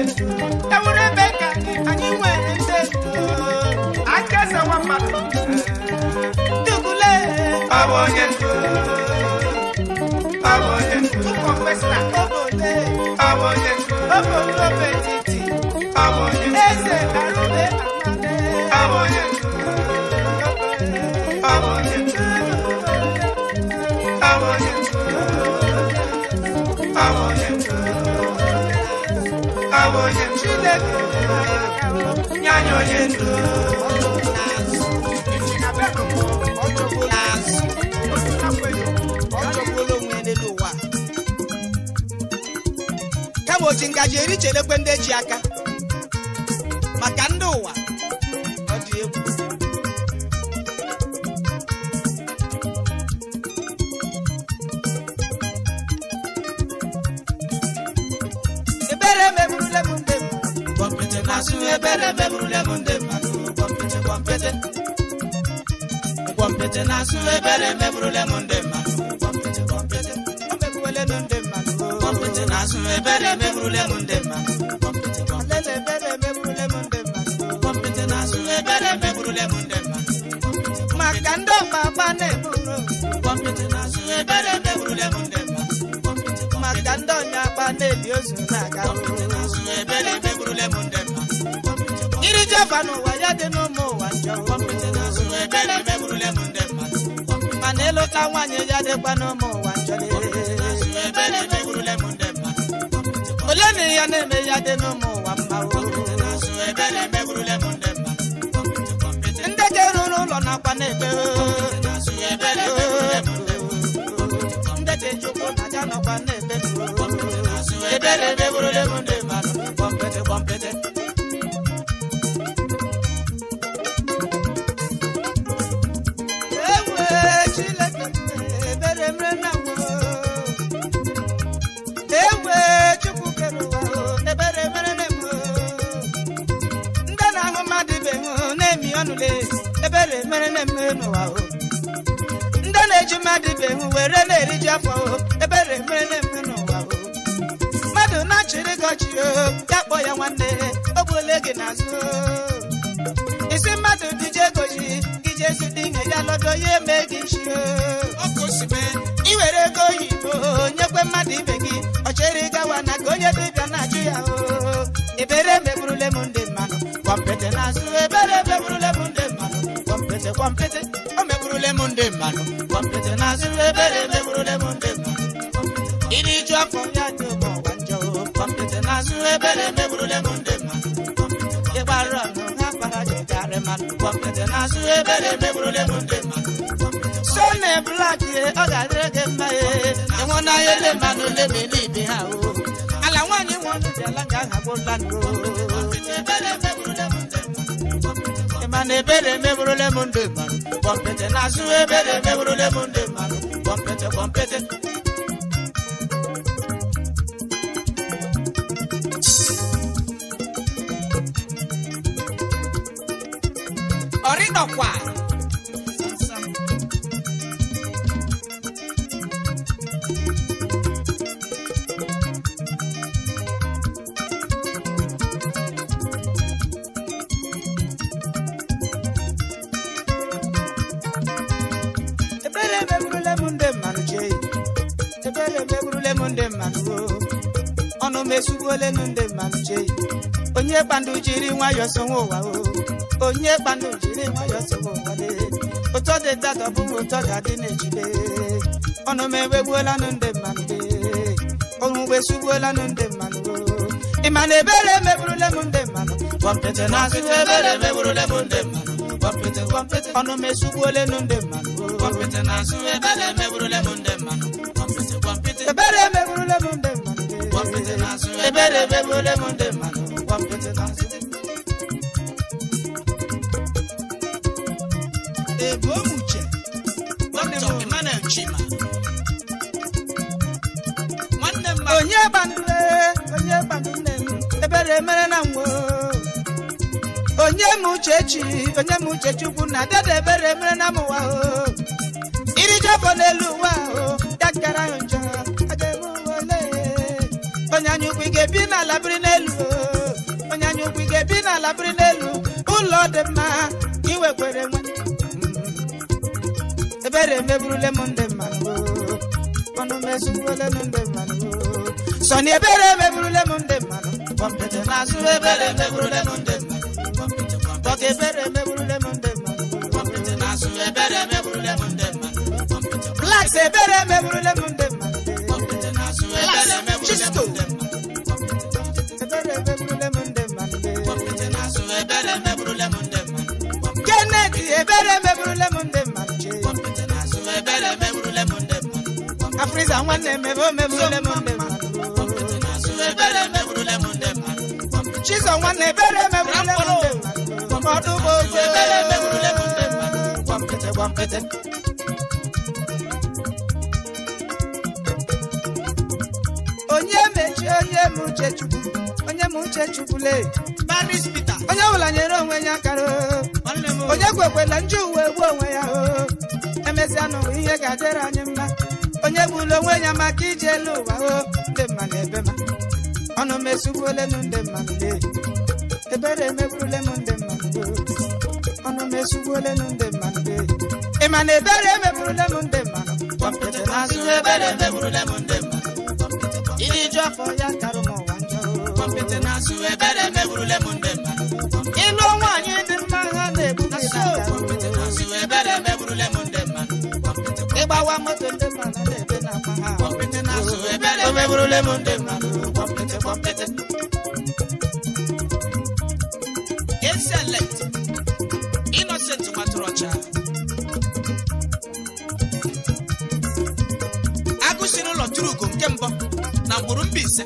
Speaker 3: I want you. ka anyị nwere onye Chineke nye anyị onye ndụ kama oji ngaji eri chelekwe ndị eji aka te na asụ ebere meburule m ndị mmadụ pọmpịtị na ebere meburule na asụ ebere meburule m ndị mmadụ maka ndị ọma agba na-eburu pọmpịtị na ndị maka ọnya agba na-eli ozu na-aga ebere iri jeva n'ụwa ya dị aka nwaanyị ya dịkwa n'ụmụ ụwa ole na ya na-eme ya dị n'ụmụ ụwa mma ndị ga-eruru ụlọ nakwa na-ebe ndị ji ụkwụ na ya were na afọ ebere mere na-eme ooo. mmadụ na-achịrị gị ọchị ya kpọọ ya nwanne o gbuola gị n'azụ isi mmadụ dije goji gị jee zute ihe ya eme gị nchi ị were ego oyibo nyekwe mmadụ ibe gị ọchịrị gawa na ka onye dịbịa na-achụ ya o ebere meburule m mmanụ ebere meburule m ndị mmanụ o meburule m ndị mmanụ maazị ebere mewurule m ndegwu iri ju ya dị ụbọ ọgwa njọ kọmpụta maazị ebere mewurule m ndegwu ịgbarụ ọnụ ha kpara jegarị mmadụ kọmpụta maazị ebere mewurule m ndegwu so na blak ọ ga-adịrị gị mma ịnwụna ya na ebere emegburole na-azụ ebere kpọmpete kpọmpete onye kpandu jiri ụwa o onye jiri ụwa ụtọ dị dada bụ adị na-ejide ọnụ m ndị mmadụ ọnwụ ndị mmadụ na ebere emeburule n'azụ ndị mmadụ ebe o muche dọkịta m onye gbandule onye ebere mere na onye m uchechi onye m uchechi na dada ebere mere na m ụwa o iri n'elu ụwa ala biri n'elu onye anya ukwu ga-ebi n'ala biri n'elu ụlọ dị mma ka iwekwere nwe mm. ebere emeburule m ndị mmanụ ọnụ mezurule m ndị mmanụ sọni ebere emeburule m monde mmanu mmanụ kọmpụta na-azụ ebere emeburule m ndị mmanụ kọka ebere emeburule m monde mmanu mmanụ kọmpụta na-azụ ebere emeburule m ndị mmanụ blaks ebere emeburule m ndị Prisa nwanne na ebe o mewuru lemon nwanne ebere bụ ebere Onye mechi onye m uche chukwu Onye m uche chukwule Onye ọbụla nyere onwe ya akara Onye kwekwela nju uwe onwe ya o Emesịa n'ụwa ga-adịrị anyị egbula onwe ya maka ije elu ụwa o ndị na ebe ma ọnụ m ole m ndị mma ebere emegbule m ndị mma ọnụ m m ndị mma ị ma na ebere m ndị azụ ebere m ndị mma afọ ya karụ m ụwa burule munde manu kwapete kwapete Excellent Innocent Maturocha Agụsiri ụlọ ugo nke mbụ na mgburu mba ise.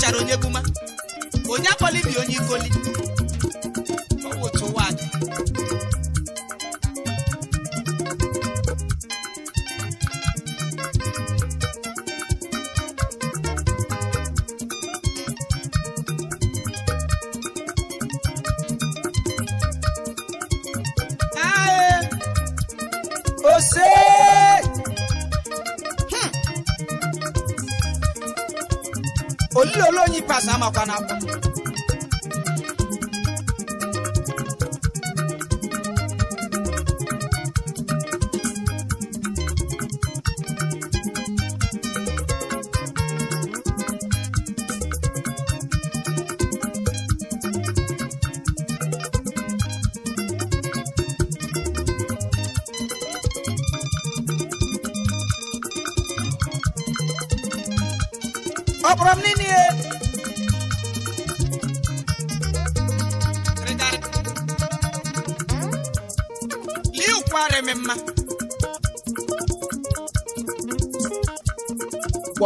Speaker 3: ọchara onye buma onye akpọli bi onye ikoli Canap.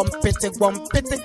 Speaker 3: one pity, one pity.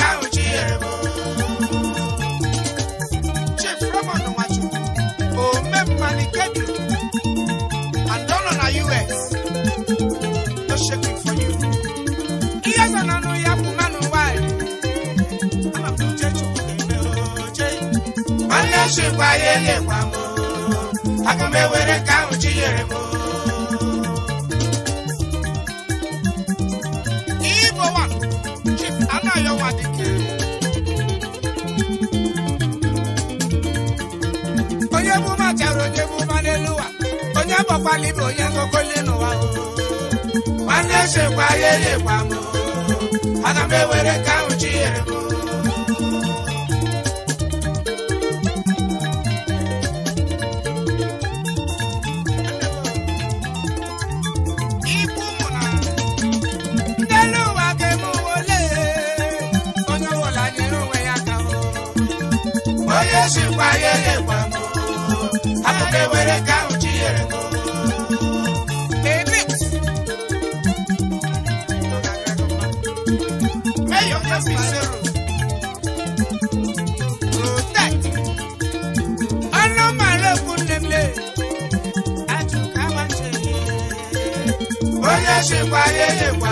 Speaker 3: wáyé lè wà mọ́ aga m ewere ka ahụ chi nyere m Igbo one Chief Anayo Wadike onye bụ ụma chara onye bụ ụma n'elu ụwa onye bọkwala ibe onye wáyé lè wà mọ́ àbúké wẹ̀rẹ̀ káwọn jí yẹrẹ mọ́. Onye chịkwa ihe nye kwa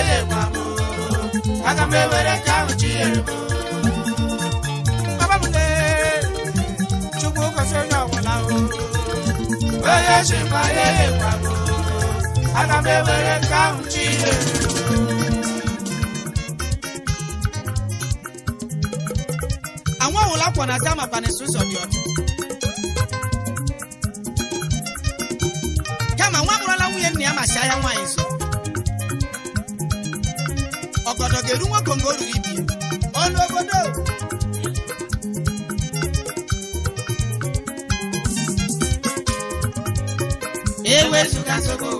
Speaker 3: elekwa m ka ahụ chinyere onye ma ya na dị kama nwa nwunye nna ya ma si ahịa nwaanyị ọnọdụ ga-eru nwa kongo ruru ibi ọnụ obodo sogo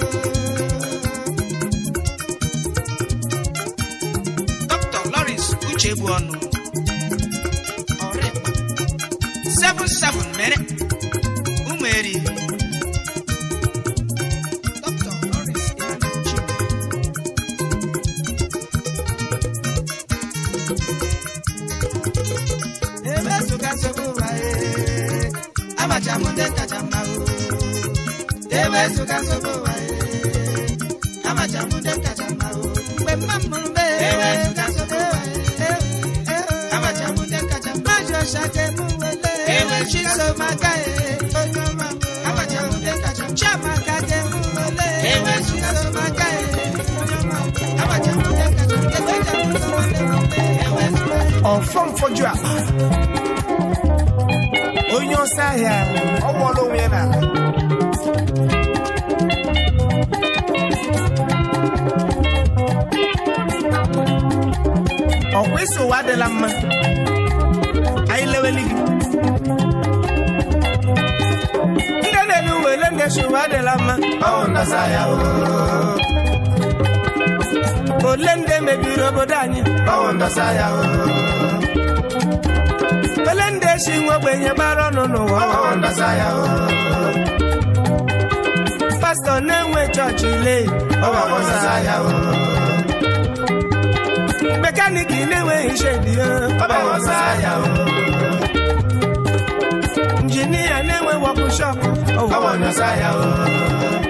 Speaker 3: for drop. On your side, I want to win. Oh, we so the lamb. I love it. Oh, Nasaya. Oh, Lende, maybe, Robert. Ọ bụrụ na ya ooo. Oh. Felenjiri e si nwo gbara ọnụ n'ụwa. Ọ ndọsa ya ooo. Oh. Pastọ na-enwe chọọchị ihe, ọ bụrụ na ya ooo. Oh. Mekaniki na-enweghị ishe idiyo. Ọ bụrụ na ya ooo. Injinia na-enwe wọpụshọpụ, ọ bụrụ ya ooo.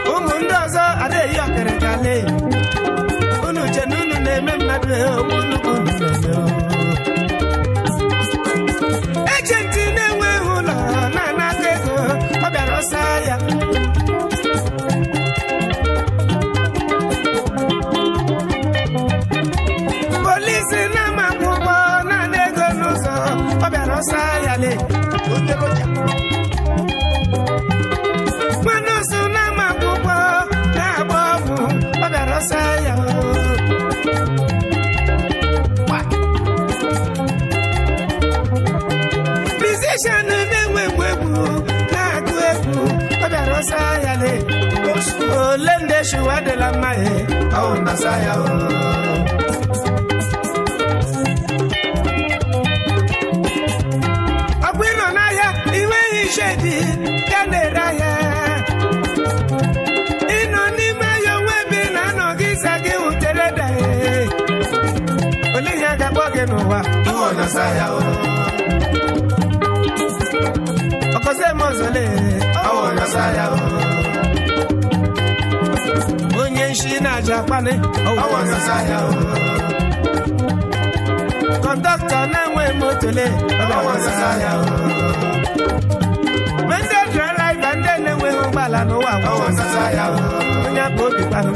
Speaker 3: ejenti na-enweghị ụlọ na-anata ego ọ bịara ọsa ya na naanị ego ọ bịara ya ole ndị eshiwa adịla mma ọwụ nasa ya ọbụ ịnọ n'ahịa iwe iche dị ka na-ere ahịa ịnọ n'ime ahịa onwe ebe ị na-anọ gị ịza gị wutere ole ga-akpọ gị n'ụwa ọwụ ya onye nshi na-aja akpali kọndọktọ na-enweghị motole ndị ndị na-enweghị ụgbọala n'ụwa onye bụ obi kpanụ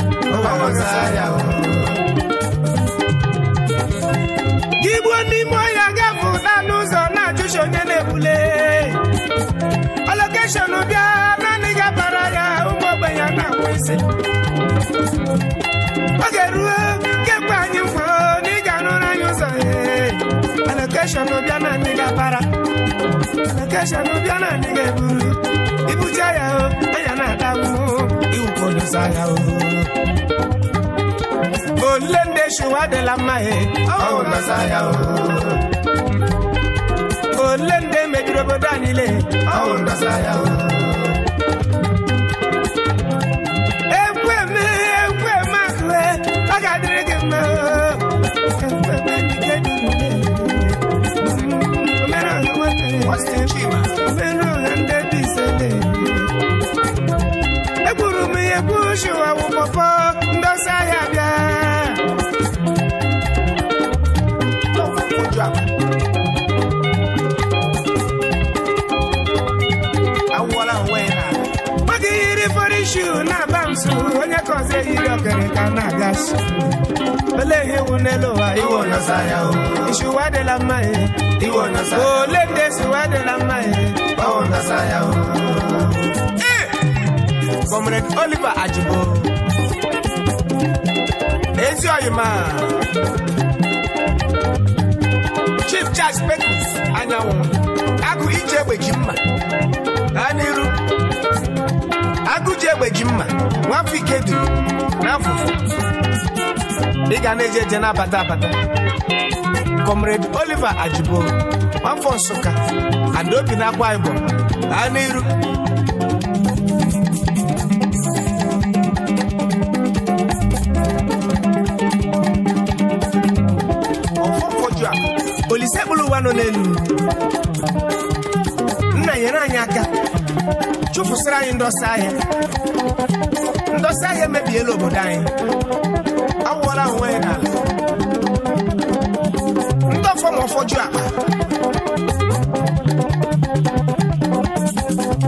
Speaker 3: gị gbuo n'ime ọhịa naanị ụzọ na-ajụchi onye na-ebule Eh. oh, oh. Eh. ọ ga-eruo oh, anyị eh. oh, zero hundred isele egburu m ihe bụ shuwa wụ pọpọ ndosa ahịa bịa onye kọzi ehiri okere ka na-aga 'ole ihe iwu n'elu ụwa iwu nọsa mma e. ya iwu ndị esi ụwa mma e? ya Comrade Oliver Ajibo ezi oyima Chief Charles Pekus anyanwụ agụ ije egbe ji mma ha n'iru agụji egbe ji mma nwafọ ike duru n'afọ ị ga na-eje eje na-abata abata Comrade Oliver Ajibo nwafọ Nsụka adaobi na akwa Ibom baa n'iru olise kpụrụ ụwa nọ n'elu chụpụsịrị anyị ndọsị ahịa ndọsị ahịa emebiela obodo anyị awụọla onwe ya n'ala ndị ọfọ ma ọfọju akpa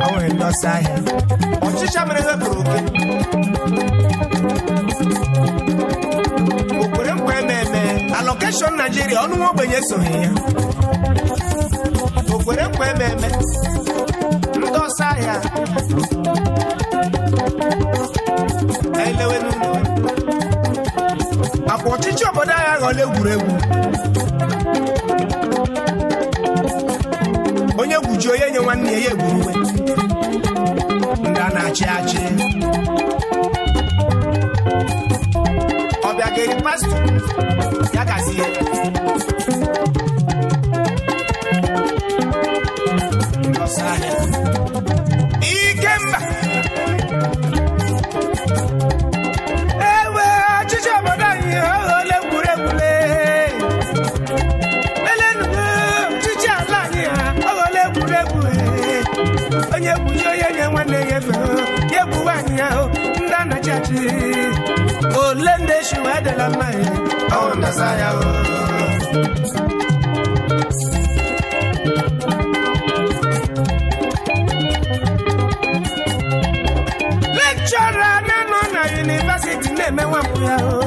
Speaker 3: o nwere ahịa ọchịcha mere ihe bụrụ oke okwere nkwa eme eme alọkeshọn naijiria ọnụ nwa ogbenye esoghị ya okwere nkwa eme eme Musa ya elewe n'ụlọ akwa ọchịchị obodo anyị aghọla egwuregwu onye ji onye nye nwanne ya ya egwuru uwe ndị a na-achị achị ọbịa ga-eri pastọ ya nchi olende oh, shuedela mai oh, aonda saya oh. lekchọra na-anọ na yunivesiti na-emenwe mpụ ya o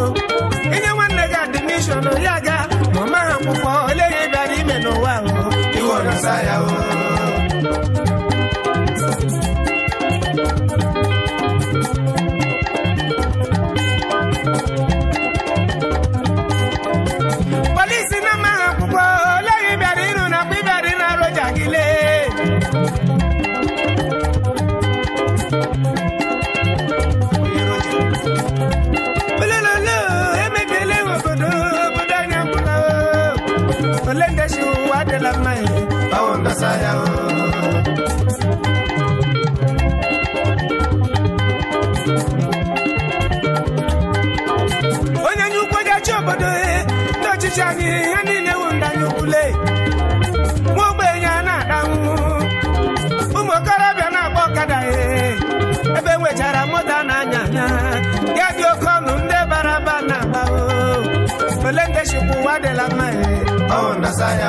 Speaker 3: onye nye ukwu ga-achị obodo e, ndị ọchịchị anyị ihe niile wu ndị anyị ukwule nwa ogbenye na-ada ụmụ okorobịa na-agba ọkada e ebe enwechara moto na-anya anya ya dị oke ọnụ ndị bara aba na-agba ole ndị chukwu ụwa adịla mma e? ọ na-asa ya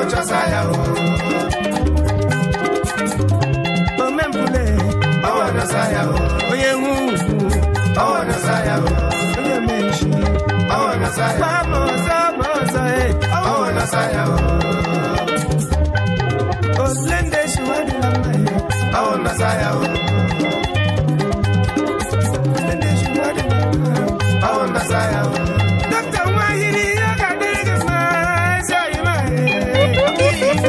Speaker 3: ụchọsa ya omempụle onye nwe ugwu onye menchi amaọzọ amaọzọ osilendesi wadịla mma ya Is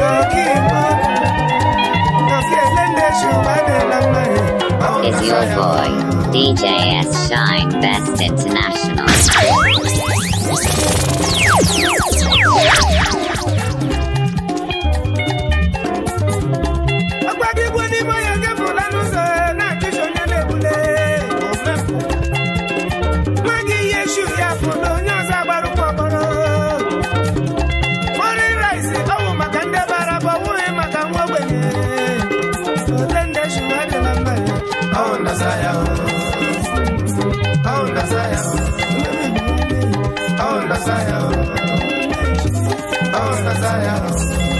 Speaker 1: your boy, DJ S. Shine Best International.
Speaker 3: Oh, Messiah. Oh, Messiah.